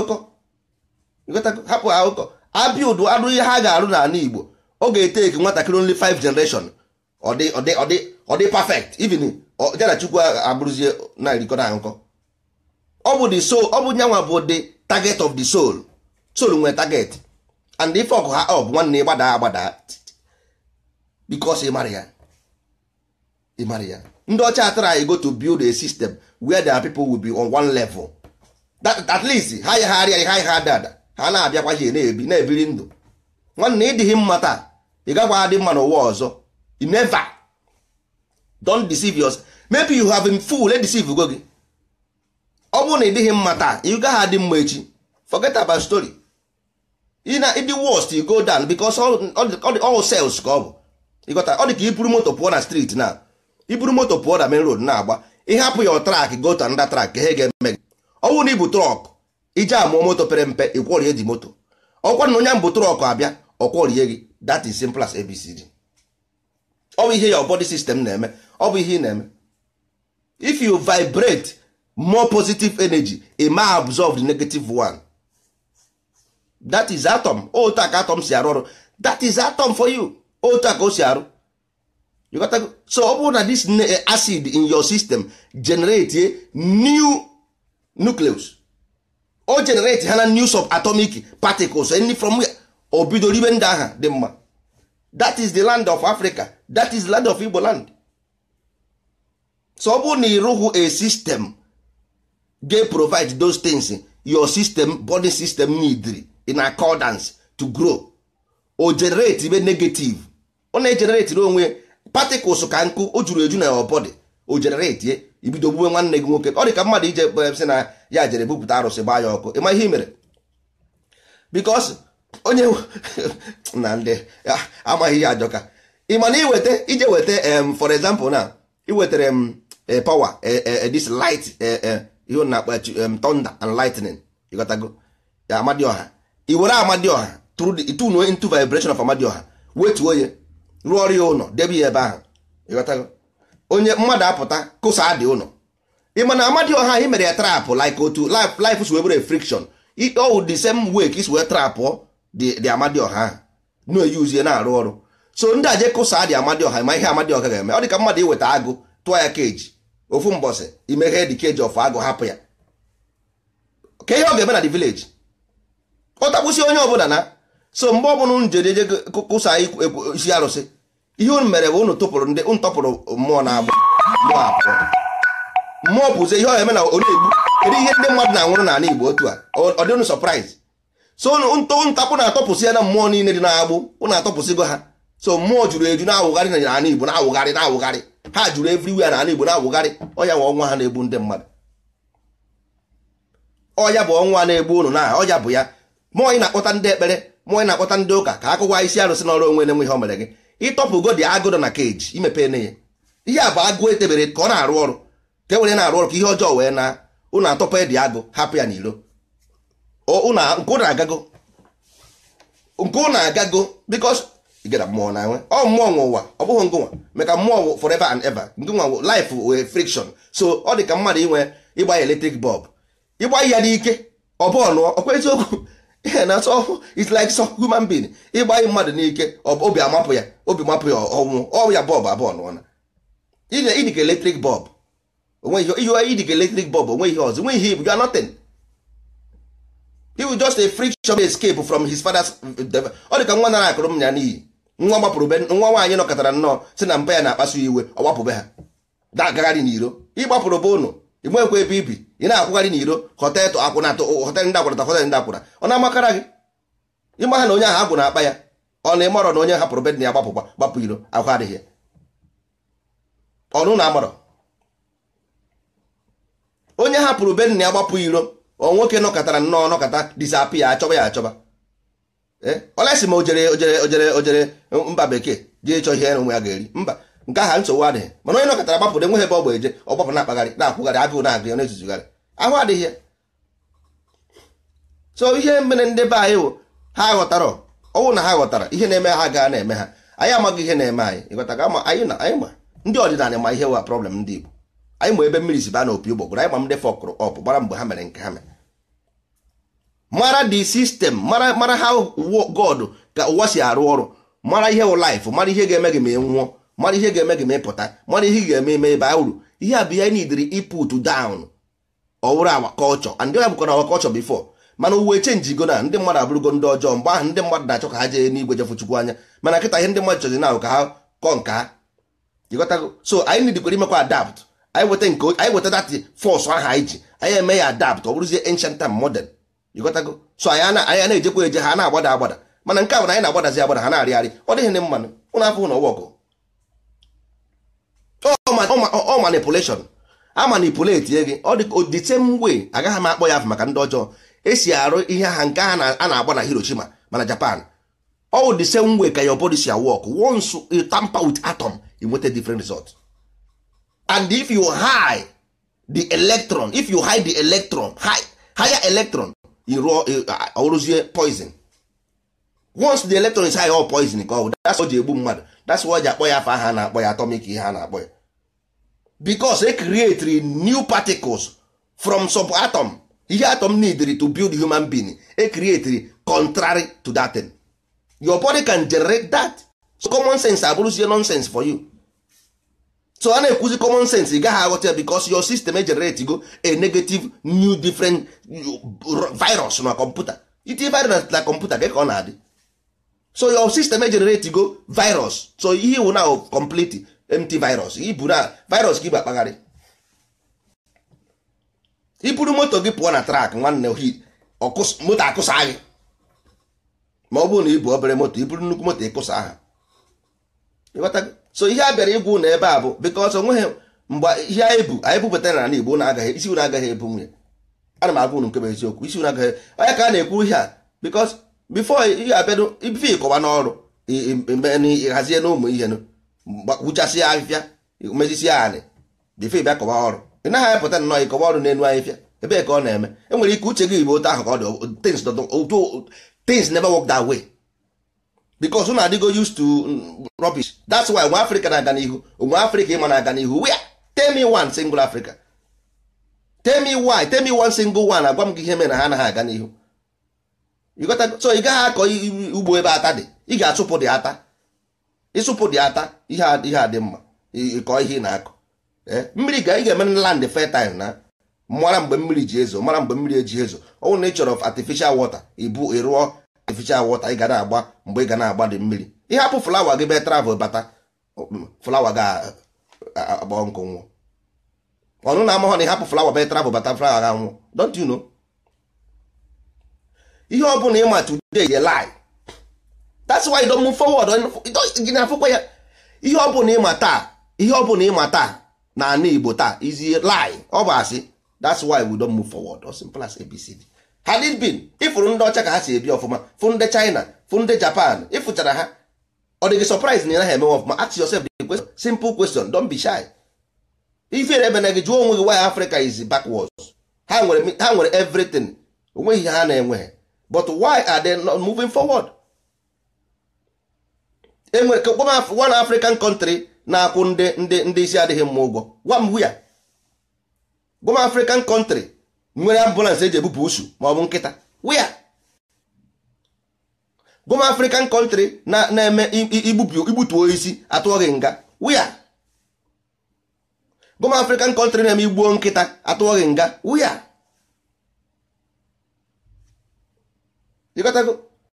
ụkọ abịa udu arụ ihe ha ga-arụ n'ala igbo ọ ga-ete eke nwatakịrị only five generation ọ dị ọ dị ọ dị perfect even ya na chukwu abụrụzie na-erikọ na nkọ ọ bụ the soul ọ bụ nyanwa bụ the target of the soul soul nwere target and ife ọkụ ha ọ bụ nwanne gbadaa agbada because ị mara ya ị mara ya ndị ọcha try go to build a system where their people will be on one level that at least ha yagharịa ha ha dada ha na-abịakwaghị na-ebi na-ebiri ndụ nwanne ịdịghị mma taa ị gakwa adị mma n'ụwa ọzọ you never don deceive us maybe you have been fool deceive go gị ọ bụrụ na ịdịghị mma taa ị gaghị adị mma echi forget about story na ịdị worst you go down because all sales ka ọ bụ ịgọta ọ dị ka ị buru moto pụọ na street na iburu moto pụọ na main road na-agba ịhapụ ya trak gota to trak track ga-eme gị ọnwụ na ibu trọk ije amụọ moto pere mpe ịkwọrie dị moto ọkwa na onye mbụ trọk abịa ọkwọrie gị that is simple as abcd ọ bụ ihe ya body sistem na-eme ọ bụ ihe ị na-eme if you vibrate more positive energy it may absorb the negative one that is atom otu atom si arụ ọrụ that is atom for you otu a ka o si arụ so ọ bụrụ na this eh, acid in your system generate eh, new nucleus o generate eh, ha na new atomic particles any from o bido ribe ndị aha dị mma that is the land of Africa that is the land of Igbo land so ọ bụrụ na ị rụghị a system ga-provide those things your system body system need in accordance to grow o generate ibe negative ọ na-egenerate onwe particles ka nkụ o juru eju na ọbọdị o jenereti ye ibido gbuwe nwanne gị nwoke ọ dị ka mmadụ ije eh, sị na ya jere bupụta arụsị gbaa ya ọkụ ịma ihe i mere bikos onye [laughs] na ndị ah, amaghị ihe ajọka ị ma na iweta ije weta for example na iwetara m eh, power eh, this light ihe na akpa thunder and lightning ịghọtago amadioha i were amadioha through the into vibration of amadioha wetuo ya rụọ ọrụ ya ụlọ debe ya ebe ahụ ịghọtago onye mmadụ apụta kụsa dị ụlọ ịma na Amadioha anyị mere ya trapụ lik otu lif si webere friction ọwụ the same way ka isi wee trapụ dị Amadioha ahụ na-eyuzie na-arụ ọrụ so ndị aje kụsa dị Amadioha ma ihe ọha ga-eme ọ dị ka mmadụ iweta agụ tụọ ya keji ofu mbọsị imeghe dị keji of agụ hapụ ya ka ihe ọ ga-eme na the vileji ọ takwụsị onye bụla na so mgbe ọbụla kụsa isi arụsị ihe unu mere bụ unu tụpụrụ ndị unu mmụọ na-agbụ mmụọ apụọ mmụọ bụzi ihe ọ eme na onye kedu ihe ndị mmadụ na-anwụrụ n'ala igbo otu a ọ dị unu surprise ntapụ na-atọpụsị ya na mmụọ niile dị na-agbụ unu atọpụsịgo ha so mmụọ juru eju na-awụgharị na n'ala igbo na-awụgharị na-awụgharị ha jụrụ juru na n'ala igbo na-awụgharị ọya bụ ọnwa ha na-egbu ndị mmadụ ọya bụ ọnwa na-egbu ụnụ na ọya bụ ya mmụọ ị na-akpọta ndị ekpere mmụọ ị na-akpọta ndị ụka ka akụkwa isi arụsị n'ọrụ onwe na-enwe ihe o mere gị ịtọpụ dị agụdọ na keji imepe ne ya ihe a bụ agụ etebere ka ọ na-arụ ọrụ ka e were na-arụ ọrụ ka ihe ọjọọ wee na ụnụ atọpụ dị agụ hapụ ya n'ilo nke na agago nke na agago bikos gara mmụọ na nwe ọ mmụọ nwe ụwa ọ bụghị ngụnwa meka mmụọ forever and ever ngụnwa nwa life wee friction so ọ dị ka mmadụ inwe ịgba ya eletrik bọb ịgba ya n'ike ọ bụọ nụọ ọkwa eziokwu na so it's like so human being ịgbanye mmadụ n'ike obi amapụ ya obi mapụ ya ọnwụ ọya bọb abụọ nụọna ịdịka eletrik bọb ịdịka eletrik bọb onwe ihe ọzọ nwe ihe ibu ya nothing iwu just a friction escape from his father's eh, ọ dị ka nwa nara akụrụ m ya n'iyi nwa gbapụrụ nwa nwaanyị nọkọtara nnọọ si na mba ya na-akpasu iwe ọ be ha da agagharị n'iro ịgbapụrụ be ụnụ ị nwekwa ebe ibi ị na-akwụgharị n'iro hotelụ akwụnatụ hotelụ ndị akwụnata hotelụ ndị akwụna ọ na-amakara gị ịmaha na onye ahụ agwụ na-akpa ya ọ na ịmarọ na onye hapụrụ bedị ya gbapụkwa gbapụ iro ahụ adịghị ọnụ na amarọ onye hapụrụ bedị ya gbapụ iro ọ nwoke nọkọtara nnọọ nọkọta disapi ya achọba ya achọba olesi eh? ma o jere ojere ojere ojere mba bekee jee chọọ ihe na ụmụ ya ga-eri mba nke aha nsogbu adịghị mana onye nọkọtara gbapụrụ enweghị ebe ọ gba eje ọ gbapụ na-akpagharị na-akwụgharị agụụ na-agụ ya na-ezuzugharị ahụ adịghị ya so ihe mere ndị be anyị wụ ha ghọtara ọnwụ na ha ghọtara ihe na-eme ha gaa na-eme ha anyị amaghị ihe na-eme anyị ịghọtaga ama anyị na anyị ma ndị ọdịnala ma ihe wa problem ndị Igbo anyị ma ebe mmiri si baa na opi ụgbọgụrụ anyị ma ndị fọkụrụ ọpụ gbara mgbe ha mere nke ha mere mara di sistem mara ha God ka ụwa si arụ ọrụ mara ihe wụ life mara ihe ga-eme gị ma ị nwụọ mara ihe ga-eme gị ma ịpụta mara ihe ga-eme eme ebe a uru ihe a bụ ihe anyị dịrị iput down ọwụrụ awa kọlchọ and ya bụkwa na awa bifo mana uwe chenjigo na ndị mmadụ abụrụgo ndị ọjọọ mgbe ahụ ndị mmadụ na-achọ ka ha jee n'igwe jefu chukwu anya mana nkịta ihe ndị mmadụ chọzi na ka ha kọ nke ha ịghọtago so anyị nidikwere imekwa adapt anyị weta nke anyị weta dati fọs ahụ anyị ji anyị eme ya adapt ọ bụrụzie ancient and modern ịghọtago so anyị anyị na-ejekwa eje ha na-agbada agbada mana nke a bụ na anyị na-agbadazi agbada ha na-arịgharị ọ dịghị ndị mmanụ ụnụ afọ hụ na ọwa ọgụ ọ manipulation a manipulate gị ọ dị the same way agaghị m akpọ ya afọ maka ndị ọjọọ esi arụ ihe ha nke a na-agba na Hiroshima mana Japan ọ the same way ka your body si work once you tamper with atom you nweta different result and if you hide the electron if you hide the electron higher electron uh, ọrụzie poison once the electron is high all poison ka ọ that's o ji egbu mmadụ that's why o ji akpọ ya afọ aha a na-akpọ ya atomic ihe a na-akpọ ya because e create new particles from subatom ihe atom needed to build human being e create contrary to that thing. your body can generate that so common sense abụrụzie nonsense for you so a na-ekwuzi common sense ị gaghị aghọta because your system generate go a negative new different uh, virus na kọmputa iti virus na kọmputa gị ka ọ na-adị so your system generate go virus so ihe wụ na complete mt virus ibu na virus ka ibu akpagharị iburu moto gị pụọ na trak nwanne ohi moto akụsa gị ma ọ bụrụ na ibu obere moto iburu nnukwu moto ịkụsa aha so ihe a bịara igwu na ebe a bụ because onweghị mgbe ihe anyị bu anyị bupụtara n'ala Igbo na-agaghị isi agaghị ebu nwunye ana m agwa unu nkebe eziokwu isi unu agaghị onye ka a na-ekwu ihe a because before ihe abịa ife ịkọwa n'ọrụ hazie n'ụmụ ihe nụ gbuchasị ya ahịfịa mezisi ya anị dịfe bịa kọba ọrụ ị naghị apụta nnọọ ịkọba ọrụ na-enu ahịfịa ebee ka ọ na-eme enwere ike uche gị bụ otu ahụ ka ọ dị things never work that way because ụnụ adịgo used to mm, rubbish that's why nwa afrịka na-aga n'ihu nwa afrịka ịma na-aga n'ihu where temi one single africa temi me temi one single one agwa m gị ihe mere na ha anaghị aga n'ihu so ị gaghị akọ ugbo ebe ata dị ị ga-achụpụ dị ata ịsụpụ dị ata ihe adị mma ịkọ ihe ị na-akọ eh, mmiri ga ị ga-eme na land fertile na mara mgbe mmiri ji ezo mara mgbe mmiri eji ezo ọ na ị chọrọ artificial water ibu ịrụọ artificial water ị ga na-agba mgbe ị ga na-agba dị mmiri ịhapụ flawa gị be travel bata flawa ga-agba nkụ nwụọ ọnụ na amahọ na ịhapụ flawa be travel bata flawa ga nwụọ don't you know ihe ọ bụla ịma today ye lie that's why you don't move forward gị na-afụkwa ya ihe ọ bụla ịma taa ihe ọ bụla ịma taa na ana Igbo taa is lie ọ bụ asị that's why we don't move forward as simple as ABCD had it been ịfụrụ ndị ọcha ka ha si ebi ọfụma fụ ndị China fụ ndị Japan ịfụchara ha ọ dị gị surprise na ị naghị emewe ọfụma ask yourself the question simple question don't be shy ifere ebe na gị jụọ onwe gị why Africa is backwards ha nwere everything onweghị ha na-enweghị but why are they not moving forward enwere ka gwa m one African country na-akwụ ndị ndị ndị isi adịghị mma ụgwọ gwa m hụ ya African country nwere ambulance eji ebupụ usu ma ọ bụ nkịta wia gwa African country na eme igbutuo isi atụọ gị nga wia gwa African country na-eme igbuo nkịta atụọ gị nga wia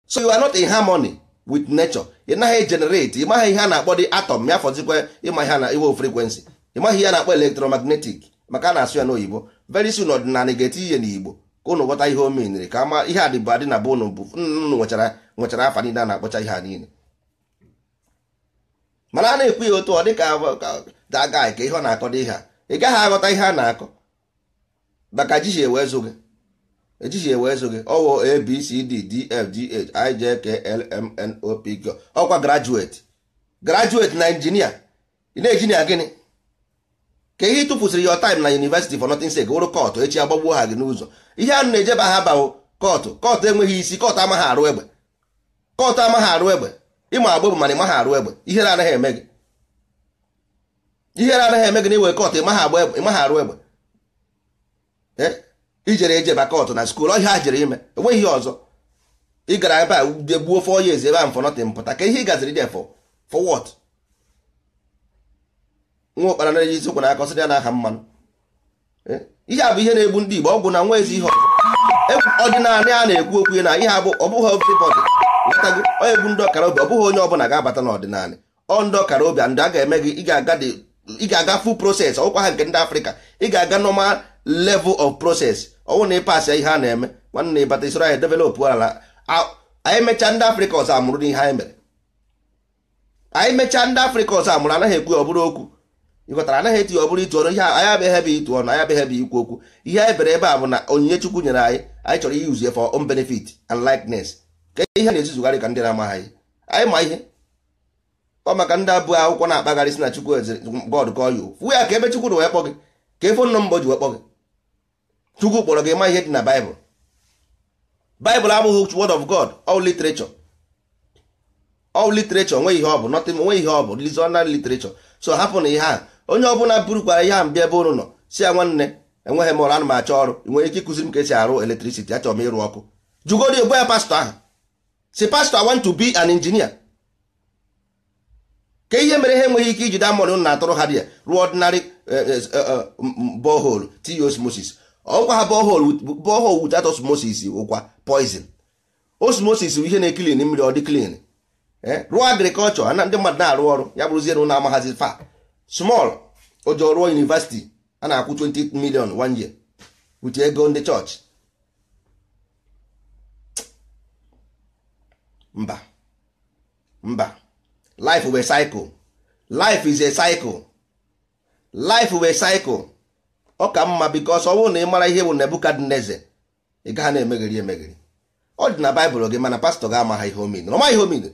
so you are not in harmony with nature ị naghị generate ị ihe a na-akpọ dị atom ya fọzikwa ịma ihe na iwe frequency ị ihe a na-akpọ electromagnetic maka ana na-asụ ya n'oyibo very soon ọdịnala ga-eti ihe n'igbo ka ụnụ ghọta ihe o menyere ka ama ihe adịbụ adị na be ụnụ bụ nnụnụ nwechara afa niile a na-akpọcha ihe a niile mana a na-ekwu ya otu ọ dị ka daga ka ihe ọ na-akọ dị ihe a ị gaghị aghọta ihe a na-akọ maka ji ji zụ gị echichi ewe eso gị ọwụ abcd dfgh ijklmnopg ọkwa grajueti grajueti na injinia ị na gịnị ka ihe ịtụfusịrị your time na university for nothing sake wụrụ kọtụ echi agbagbuo ha gị n'ụzọ ihe anụ na-ejeba ha bawo kọtụ kọtụ enweghị isi kọtụ amaghị arụ egbe kọtụ amaghị arụ egbe ịma agba bụ mana ịmaghị arụ egbe ihere anaghị eme gị ihere anaghị eme gị na iwe kọtụ ịmaghị agba ịmaghị arụ egbe eh? ijere eje bakọt na skuul ọhịa ha jere ime enweghị ihe ọzọ ị gara ebe a gbuo fọ years ebe a mfọnọtịn mpụta ka ihe ị gaziri dị fọ for what nwa ụkpara na ezi ụkwụ na-akọ sịrị ya n'aha mmanụ eh? ihe a bụ ihe na-egbu ndị Igbo ọgwụ na nwa ezi ihe ọzọ ọdịnala a na-ekwu okwu na ihe abụ ọbụghị everybody letago onye egbu ndị ọkara obi ọ bụghị onye ọbụla ga-abata n'ọdịnala ọ ndị ọkara obi ndị a ga-eme gị ị ga-aga full process ọkwa ha nke ndị Afrịka ị ga-aga normal level of process ọnwụ na ịpasị ihe a na-eme nwanne ịbata isoro anyị e developụ ala anyị mechaa ndị afrịka ọzọ amụrụ n'ihe anyị mere anyị mechaa ndị afrịka ọzọ amụrụ anaghị ekwu ọbụrụ okwu ịghọtara anaghị etinye ọbụrụ itu ọnụ ihe anyị abịaghị ebe itu ọnụ anyị abịaghị ebe ikwu okwu ihe anyị bere ebe a bụ na onyinye chukwu nyere anyị anyị chọrọ iyi uzie for own benefit and likeness ka ihe na-ezuzugharị ka ndị na-amaghị anyị ma ihe ọ maka ndị abụọ akwụkwọ na-akpagharị si na chukwu bọọdụ kọọ ya ofu ya ka ebe chukwu na wee kpọ gị ka efe nọ mbọ ji wee kpọ gị chukwu kpọrọ gị ma ihe dị na baịbụl baịbụl abụghị word of god all literature all literature nwe ihe ọ bụ nothing nwe ihe ọ bụ reasonal literature so hapụ na ihe a onye ọbụla burukwara ihe a mbịa ebe unu nọ si ya nwanne enweghị m ọrụ ana m achọ ọrụ nwere ike ịkụziri m ka esi arụ electricity achọrọ m ịrụ ọkụ jugodi ogbo ya pastọ ahụ si pastọ want to be an engineer ka ihe mere ha enweghị ike ijide amụrụ na-atụrụ ha dị ya rụọ ordinary eh, eh, eh, borehole t osmosis ọgwa ha borehole without osmosis ụkwa poison osmosis bụ ihe na-ekilin mmiri ọ dị clean e, rụọ agrikọlchọ na ndị mmadụ na-arụ ọrụ ya bụrụzie na ụlọ amaghazi fa small ojo rụọ university a na-akwụ 20 million one year with ego ndị chọọchị mba mba life is a cycle life is a cycle life is a cycle ọ ka mma bikos ọ bụrụ na ị mara ihe bụ nebukadneze ị gaghị na-emegheri emegheri ọ dị na baịbụl gị mana pastọ ga-ama ihe omine ọma ihe omine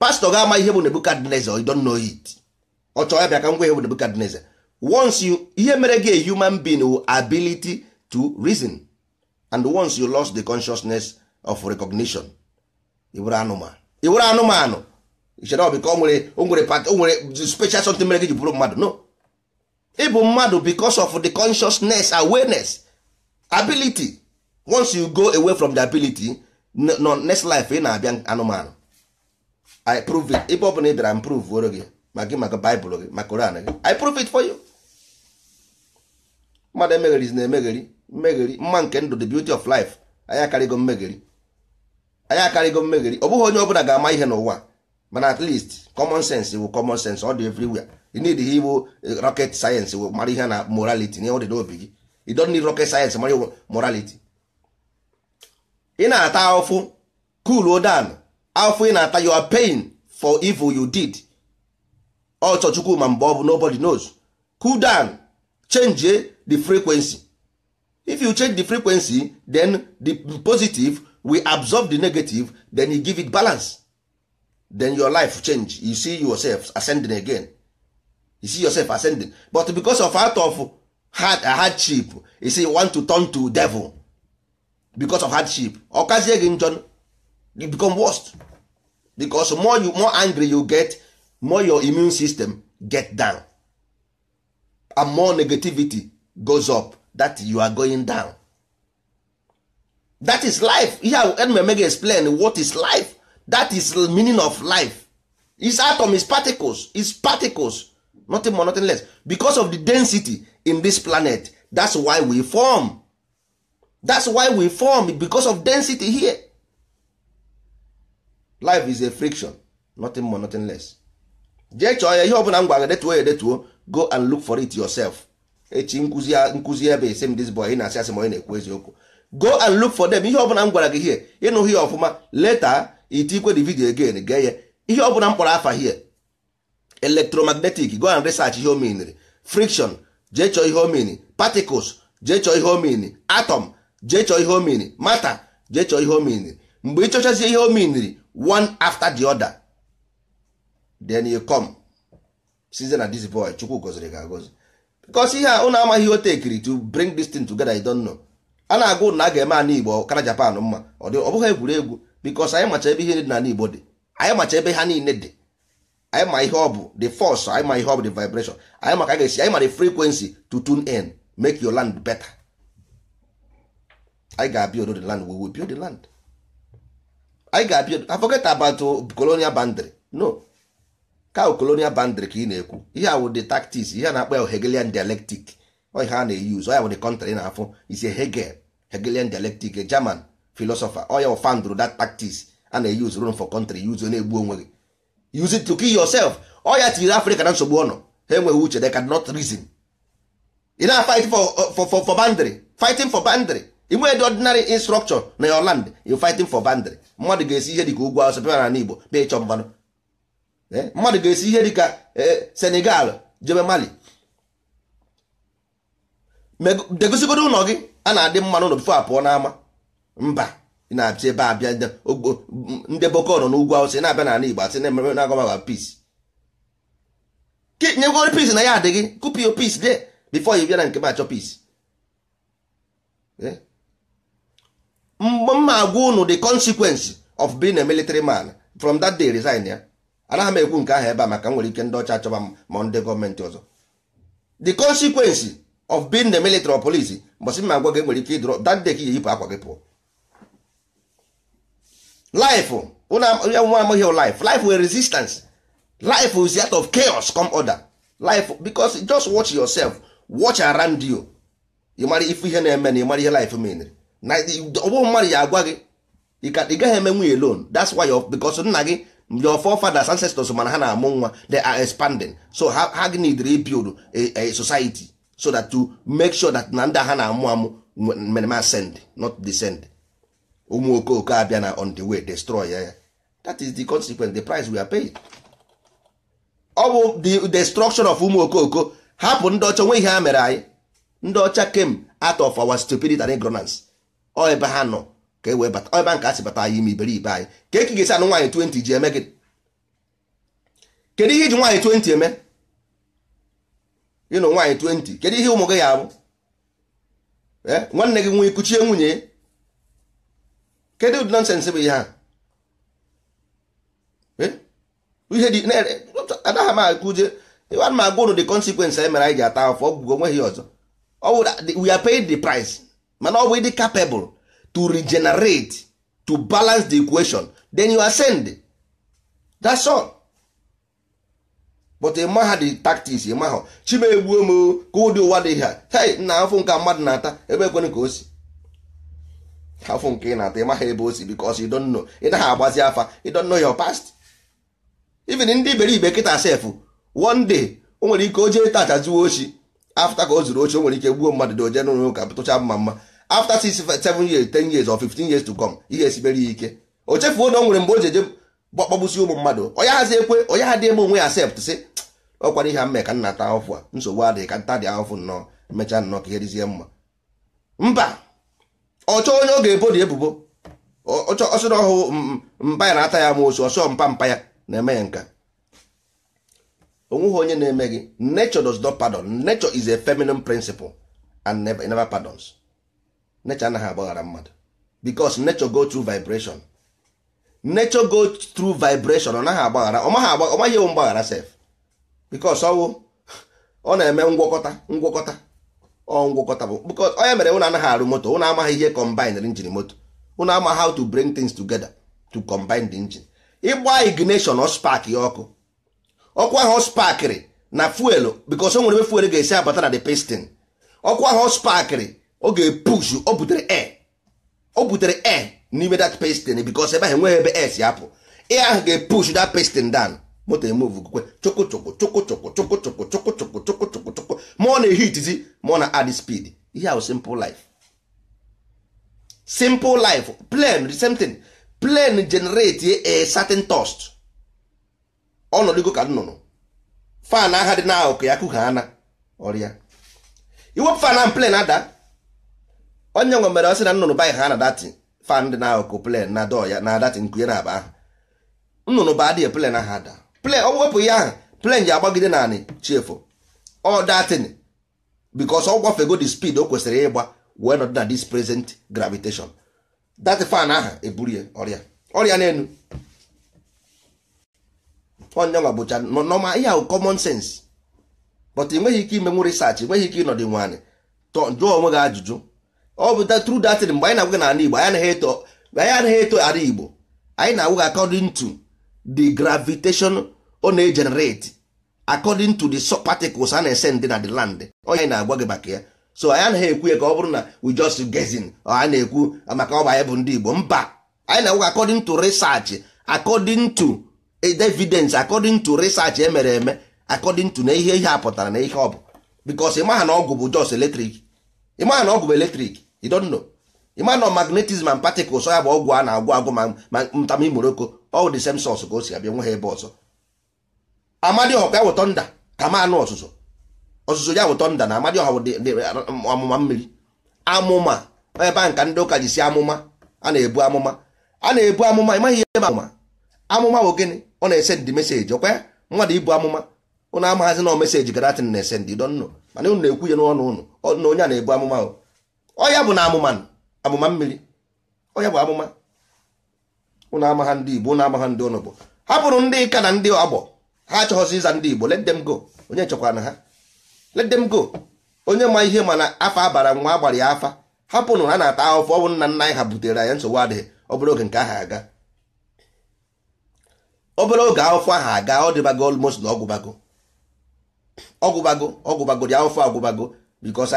pastọ ga-ama ihe bụ nebukadneze you don't know it ọ chọọ ya bịa ka ngwa ihe bụ nebukadneze once you ihe mere gị human being with ability to reason and once you lost the consciousness of recognition ị anụmanụ ị bụrụ anụmanụ ichere ọ bụ ka o nwere special something mere gị ji bụrụ mmadụ no ịbụ mmadụ bicos of the consciousness awareness ability once you go away from the ability no next life ị na-abịa anụmanụ i prove it ebe ọ ị bịara improve oro gị ma gị maka gị maka koran i prove it for you mmadụ emegheri na emegheri mmegheri mma nke ndụ the beauty of life anyị akarịgo mmegheri anyị akarịgo mmegheri ọ bụghị onye ọ ga-ama ihe n'ụwa mana at least common sense wụ common sense ọ dị everywhere you need ihe iwu eh, rocket science wụ mara ihe na morality na ọ dị n'obi gị you don need rocket science mara morality ị na-ata afụ cool down afụ ị na-ata you are paying for evil you did ọchọ chukwu ma mgbe ọ bụ nobody knows cool down change eh, the frequency if you change the frequency then the positive will absorb the negative then you give it balance then your life change you see yourself ascending again you see yourself ascending but because of out of hard hardship you see you want to turn to devil because of hardship ọkazie gị njọ you become worst because more you more angry you get more your immune system get down and more negativity goes up that you are going down that is life ihe a eme explain what is life that is the meaning of life its atom is particles is particles nothing more nothing less because of the density in this planet that's why we form that's why we form because of density here life is a friction nothing more nothing less jee chọọ ya ihe ọbụla m gwara detuo ya detuo go and look for it yourself echi nkuzi nkuzi ebe ese m this boy ị na-asị asị ma onye na-ekwu eziokwu go and look for them ihe ọbụla m gwara gị here ịnụghị ya ọfụma later itikwe the video again gee ya ihe ọ bụla mkpọrọ afa hie electromagnetic go and research ihe omeniri friction jee chọọ ihe omeni particles jee chọọ ihe omeni atom jee chọọ ihe omeni matter jee chọọ ihe omeniri mgbe ịchọchazie ihe omeniri one after the other then you come size na this boy chukwu goziri ga agozi because ihe a unu amaghị ihe o tekiri to bring this thing together you don't know a na-agụ na a ga-eme ana igbo kara japan mma ọ bụghị egwuregwu bikos anyị macha ebe ihe niile n'ala Igbo dị anyị macha ebe ha niile dị anyị ma ihe ọ bụ the force anyị ma ihe ọ bụ the vibration anyị maka ga-esi anyị ma the frequency to tune in make your land better anyị ga-abịa odo the land we will build the land anyị ga-abịa forget about colonial boundary no ka colonial boundary ka ị na-ekwu ihe awụ wụ the tactics ihe na-akpọ ya Hegelian dialectic ọ ihe a na-eyuz ọ ya wụ the country na-afụ isi Hegel Hegelian dialectic German philosopher oya ụfandụrụ that tactics a na-eyuzu run for country use na-egbu onwe gị use it to kill yourself oya tinyere africa na nsogbu ọnọ ha enweghị uche they cannot reason ị na fight for, for, for, for boundary fighting for boundary inwe dị ordinary instruction na your land you fighting for boundary mmadụ ga-esi ihe dịka ugwu asọ bịara na igbo bịa ịchọ mmanụ eh? mmadụ ga-esi ihe dịka eh, senegal jebe mali degosigodo ụlọ gị a na-adị mmanụ ụlọ bifo apụọ n'ama mba na-achị ebe a bịa ndị boko nọ n'ugwu awụsa na-abịa n'ala igbo asị na-ememe na-agwa peace nyegoro peace na ya adịghị gị kụpio peace de before ị bịa na nke m achọ peace eh? mgbe m agwa unu the consequence of being a military man from that day resign ya anaghị m ekwu nke ahụ ebe a maka nwere ike ndị ọcha achọba ma ndị gọọmenti ọzọ the consequence of being the military or police mbọsị m agwa gị nwere ike ịdụrọ that day ka iyeyipụ akwa gị pụọ life ya nwa amaghị life life were resistance life is out of chaos come order life because just watch yourself watch around you ị mara ife ihe na-eme na ị mara ihe life menere na ọgbụ mmadụ ya agwa gị ị gaghị eme nwunye alone that's why because nna gị your forefathers ancestors mana ha na-amụ nwa they are expanding so ha gị need rebuild a society so that to make sure that na ndị ha na-amụ amụ merema not descend ụmụ okooko abịa na on the way destroy ya ya that is the consequence the price we are paying. ọ bụ the destruction of ụmụ okooko hapụ ndị ọcha nwe ihe ha mere anyị ndị ọcha came out of our stupidity and ignorance ọ ebe ha nọ ka e wee bata ebe nke a si bata anyị ime iberibe anyị ka eki ga-esi anụ nwaanyị 20 ji eme gị kedu ihe iji nwaanyị 20 eme ịnụ nwaanyị 20 kedu ihe ụmụ gị ya abụ eh, nwanne gị nwee kuchie nwunye Kedu ụdị nọnsensị bụ ihe a ihe dị anaghị m akụje ịwa ma agwa ụrụ the consequence anyị mere anyị ji ata afọ ọgwụgwọ nweghị ọzọ we are paid the price mana ọ bụ ịdị capable to regenerate to balance the equation then you ascend that's all but ịmaha e the tactics ịmahọ chimegbuo m ka ụdị ụwa dị ha hei nna afọ nke mmadụ na-ata ebe ekwere ka o si afụ nke ị na-ata ịmaghị ebe o si because you don't know ị naghị agbazi afa you don't know your past even ndị iberibe kịta sef one day o nwere ike o jee tacha ochi afta ka o zuru ochi o nwere ike gbuo mmadụ doje n'ụlọ ụka tụcha mma mma afta 6 seven years ten years or fifteen years to come ihe esibere ya ike o chefuo na o nwere mgbe o ji eje gbakpọgbusi ụmụ mmadụ onye hazi ekwe onye ha dị ebe onwe ya sept sị ọkwara ihe mme ka nna ta ahụfụ a nsogbu adịghị ka nta dị ahụfụ nnọọ emechaa nnọọ ka ihe dịzie mma mba ọchọ onye ọ ga-ebodi ebubo ọsọrọ ọhụụ mpa ya na-ata ya ma osu ọsọ mpa mpa ya na-eme ya nka onweghị onye na-eme gị nature does not pardon nature is a feminine principle and never, never pardons nature anaghị agbaghara mmadụ because nature go through vibration nature go through vibration ọ naghị agbaghara ọ ewu mgbaghara sef because ọwụ ọ na-eme ngwọkọta ngwọkọta ngwọkọta bụ because onye mere ụnụ anaghị arụ moto ụnụ amaghị ihe combine engine moto ụnụ ama how to bring things together to combine the engine ịgba ignition ọ spark ya ọkụ ọkụ ahụ ọ sparkịrị na fuelu because o nwere ebe fuelu ga-esi abata na the piston ọkụ ahụ ọ sparkịrị ọ ga-epush o butere air o butere air n'ime that piston because ebe ahụ enweghị ebe air si apụ ị ahụ ga-epush that piston down moto emove kwukwe chụkụ chụkụ ma ọ na-ehitizi ma ọ na-add speed ihe ahụ simple life simple life plane the same thing plane generate a ọnọdụgo ka nnụnụ fan dị n'ahụ ụka ya kụgha ana ọrịa iwepụ fan ahụ plane ada onye nwe mere ọsị na nnụnụ baanyị ha na fan dị na ụka plane na dọ ya na datin nkụnye na akpa ahụ nnụnụ ba adịghị plen ahụ ada plen ọ wepụ ya ahụ plen ji agbagide naanị chiefu all that bikos ọ gwafego the speed o kwesịrị ịgba wee nọdụ na dis present gravitation that fan ahụ eburu ya ọrịa ọrịa n'elu onyenwa bụcha nọma ihe ahụ common sense but enweghị ike ime imenwu research enweghị ike ịnọdụ nwaanyị jụọ onwe gị ajụjụ ọ bụ tru datin mgbe anyị na-agwa gị n'ala igbo anyị anaghị eto ala igbo anyị na-agwa gị according to the gravitation ọ na-egenerate according to the particles a na-esend na the land onye na-agwa gị maka ya so anyị anaghị ekwu ya ka ọ bụrụ na we just guessing a na-ekwu maka ọ ya anyị bụ ndị Igbo mba anyị na-agwa according to research according to evidence according to research emere eme according to na ihe ihe a pụtara na ihe ọ bụ because ịmaha na ọgwụ bụ ịmaha na ọgwụ bụ ịmaha na magnetism and particles ya bụ ọgwụ a na-agwụ agwụ ma Ọ the same source ka o si abịa nwe ha ebe ọzọ amadioha ya wụ tọnda ka ma anụ ọzụzụ ọzụzụ ya wụ tọnda na amadioha wụ amụma mmiri amụma ebe a nka ndị ụka ji si amụma a na-ebu amụma a na-ebu amụma ịmaghị ihe ma amụma amụma bụ gịnị ọ na-ese ndị meseji ọkwa mmadụ ibu amụma ụnụ amaghazi na meseji garatin na-ese ndị dọnnụ mana ụnụ na-ekwu ya n'ọnụ ụnụ na onye a na-ebu amụma ọ ya bụ na amụma amụma mmiri ọ ya bụ amụma ụnụ ha ndị igbo ụnụ ha ndị ụnụ bụ hapụrụ ndị ka na ndị agbọ ha achọghọzi ịza ndị igbo let them go onye chekwana ha let them go onye ma ihe mana afa abara nwa agbara ya afa hapụnụ ha na-ata ahụfụ ọnwụ nna nna anyị ha butere anyị nsogbu adịghị obere oge nke aha aga obere oge ahụfụ aha aga ọ dịbago almost na ọgwụbago ọgwụbago ọgwụbago dị ahụfụ agwụbago because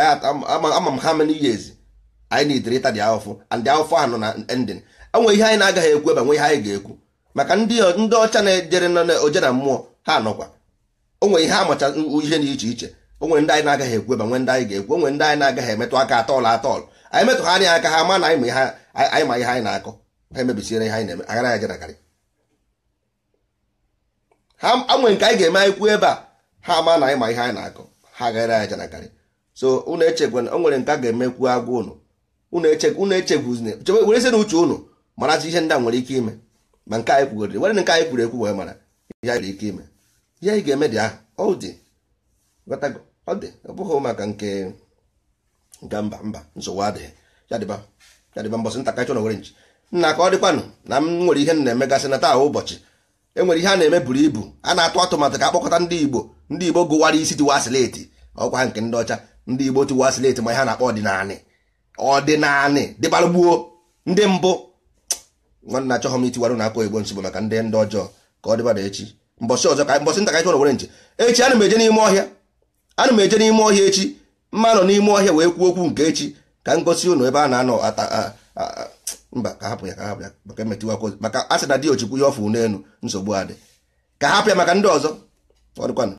ama m ha many years anyị na-etere ịta dị ahụfụ and dị ahụfụ ahụ nọ na ending onwe ihe anyị na-agaghị ekwu ebe nwe ihe anyị ga-ekwu maka ndị ọcha na-ejere oje na mmụọ ha nọkwa onwe ihe amacha ihe dị iche iche onwe ndị anyị na-agaghị ekwu ebe nwe ndị anyị ga-ekwu onwe ndị anyị na-agaghị emetụ aka atọọlụ atọọlụ anyị metụ ha anya aka ha ma na anyị ma ihe anyị na-akọ ha emebisiere ihe anyị na-eme agara ya jerakarị ha anwe nke anyị ga-eme anyị kwuo ebe a ha ma na anyị ma ihe anyị na-akọ ha gara ya jerakarị so unu echekwana o nwere nke a ga-emekwu agwa unu unu echekwu unu echekwu were sị na uche marazi ihe ndị a nwere ike ime ma nke anyị kwugoriri were nke anyị kwuru ekwu wee mara ihe anyị nwere ike ime ihe anyị ga-eme dị ahụ ọ dị ọ dị ọ bụghị maka nke nke mba mba nsogbu adịghị ya dịba ya dịba mbọsị ntakịrị e chọrọ were nchi nna ka ọ dịkwanụ na m nwere ihe na-emegasị na taa ụbọchị enwere ihe a na-eme buru ibu a na-atụ atụmatụ ka akpọkọta ndị Igbo ndị Igbo gụwara isi tiwa sileti ọkwa nke ndị ọcha ndị Igbo tiwa sileti ma ihe a na-akpọ ọdịnanị ọdịnanị dịbalụgbuo ndị mbụ Nwanne na achọghọ m itiwara na aka oyibo nsogbu maka ndị ndị ọjọọ ka ọ dịbada echi mbọsị ọzọ ka mbọsị nta ka chọrọ were nche echi ana m eje n'ime ọhịa ana m eje n'ime ọhịa echi mma nọ n'ime ọhịa wee kwuo okwu nke echi ka m gosi ụnụ ebe a na-anọ ata mba ka hapụ ya ka hapụ ya maka emetiwakwa maka asị na dị ojikwu ya ọfụ n'elu nsogbu adị ka hapụ ya maka ndị ọzọ ọ ọdịkwanụ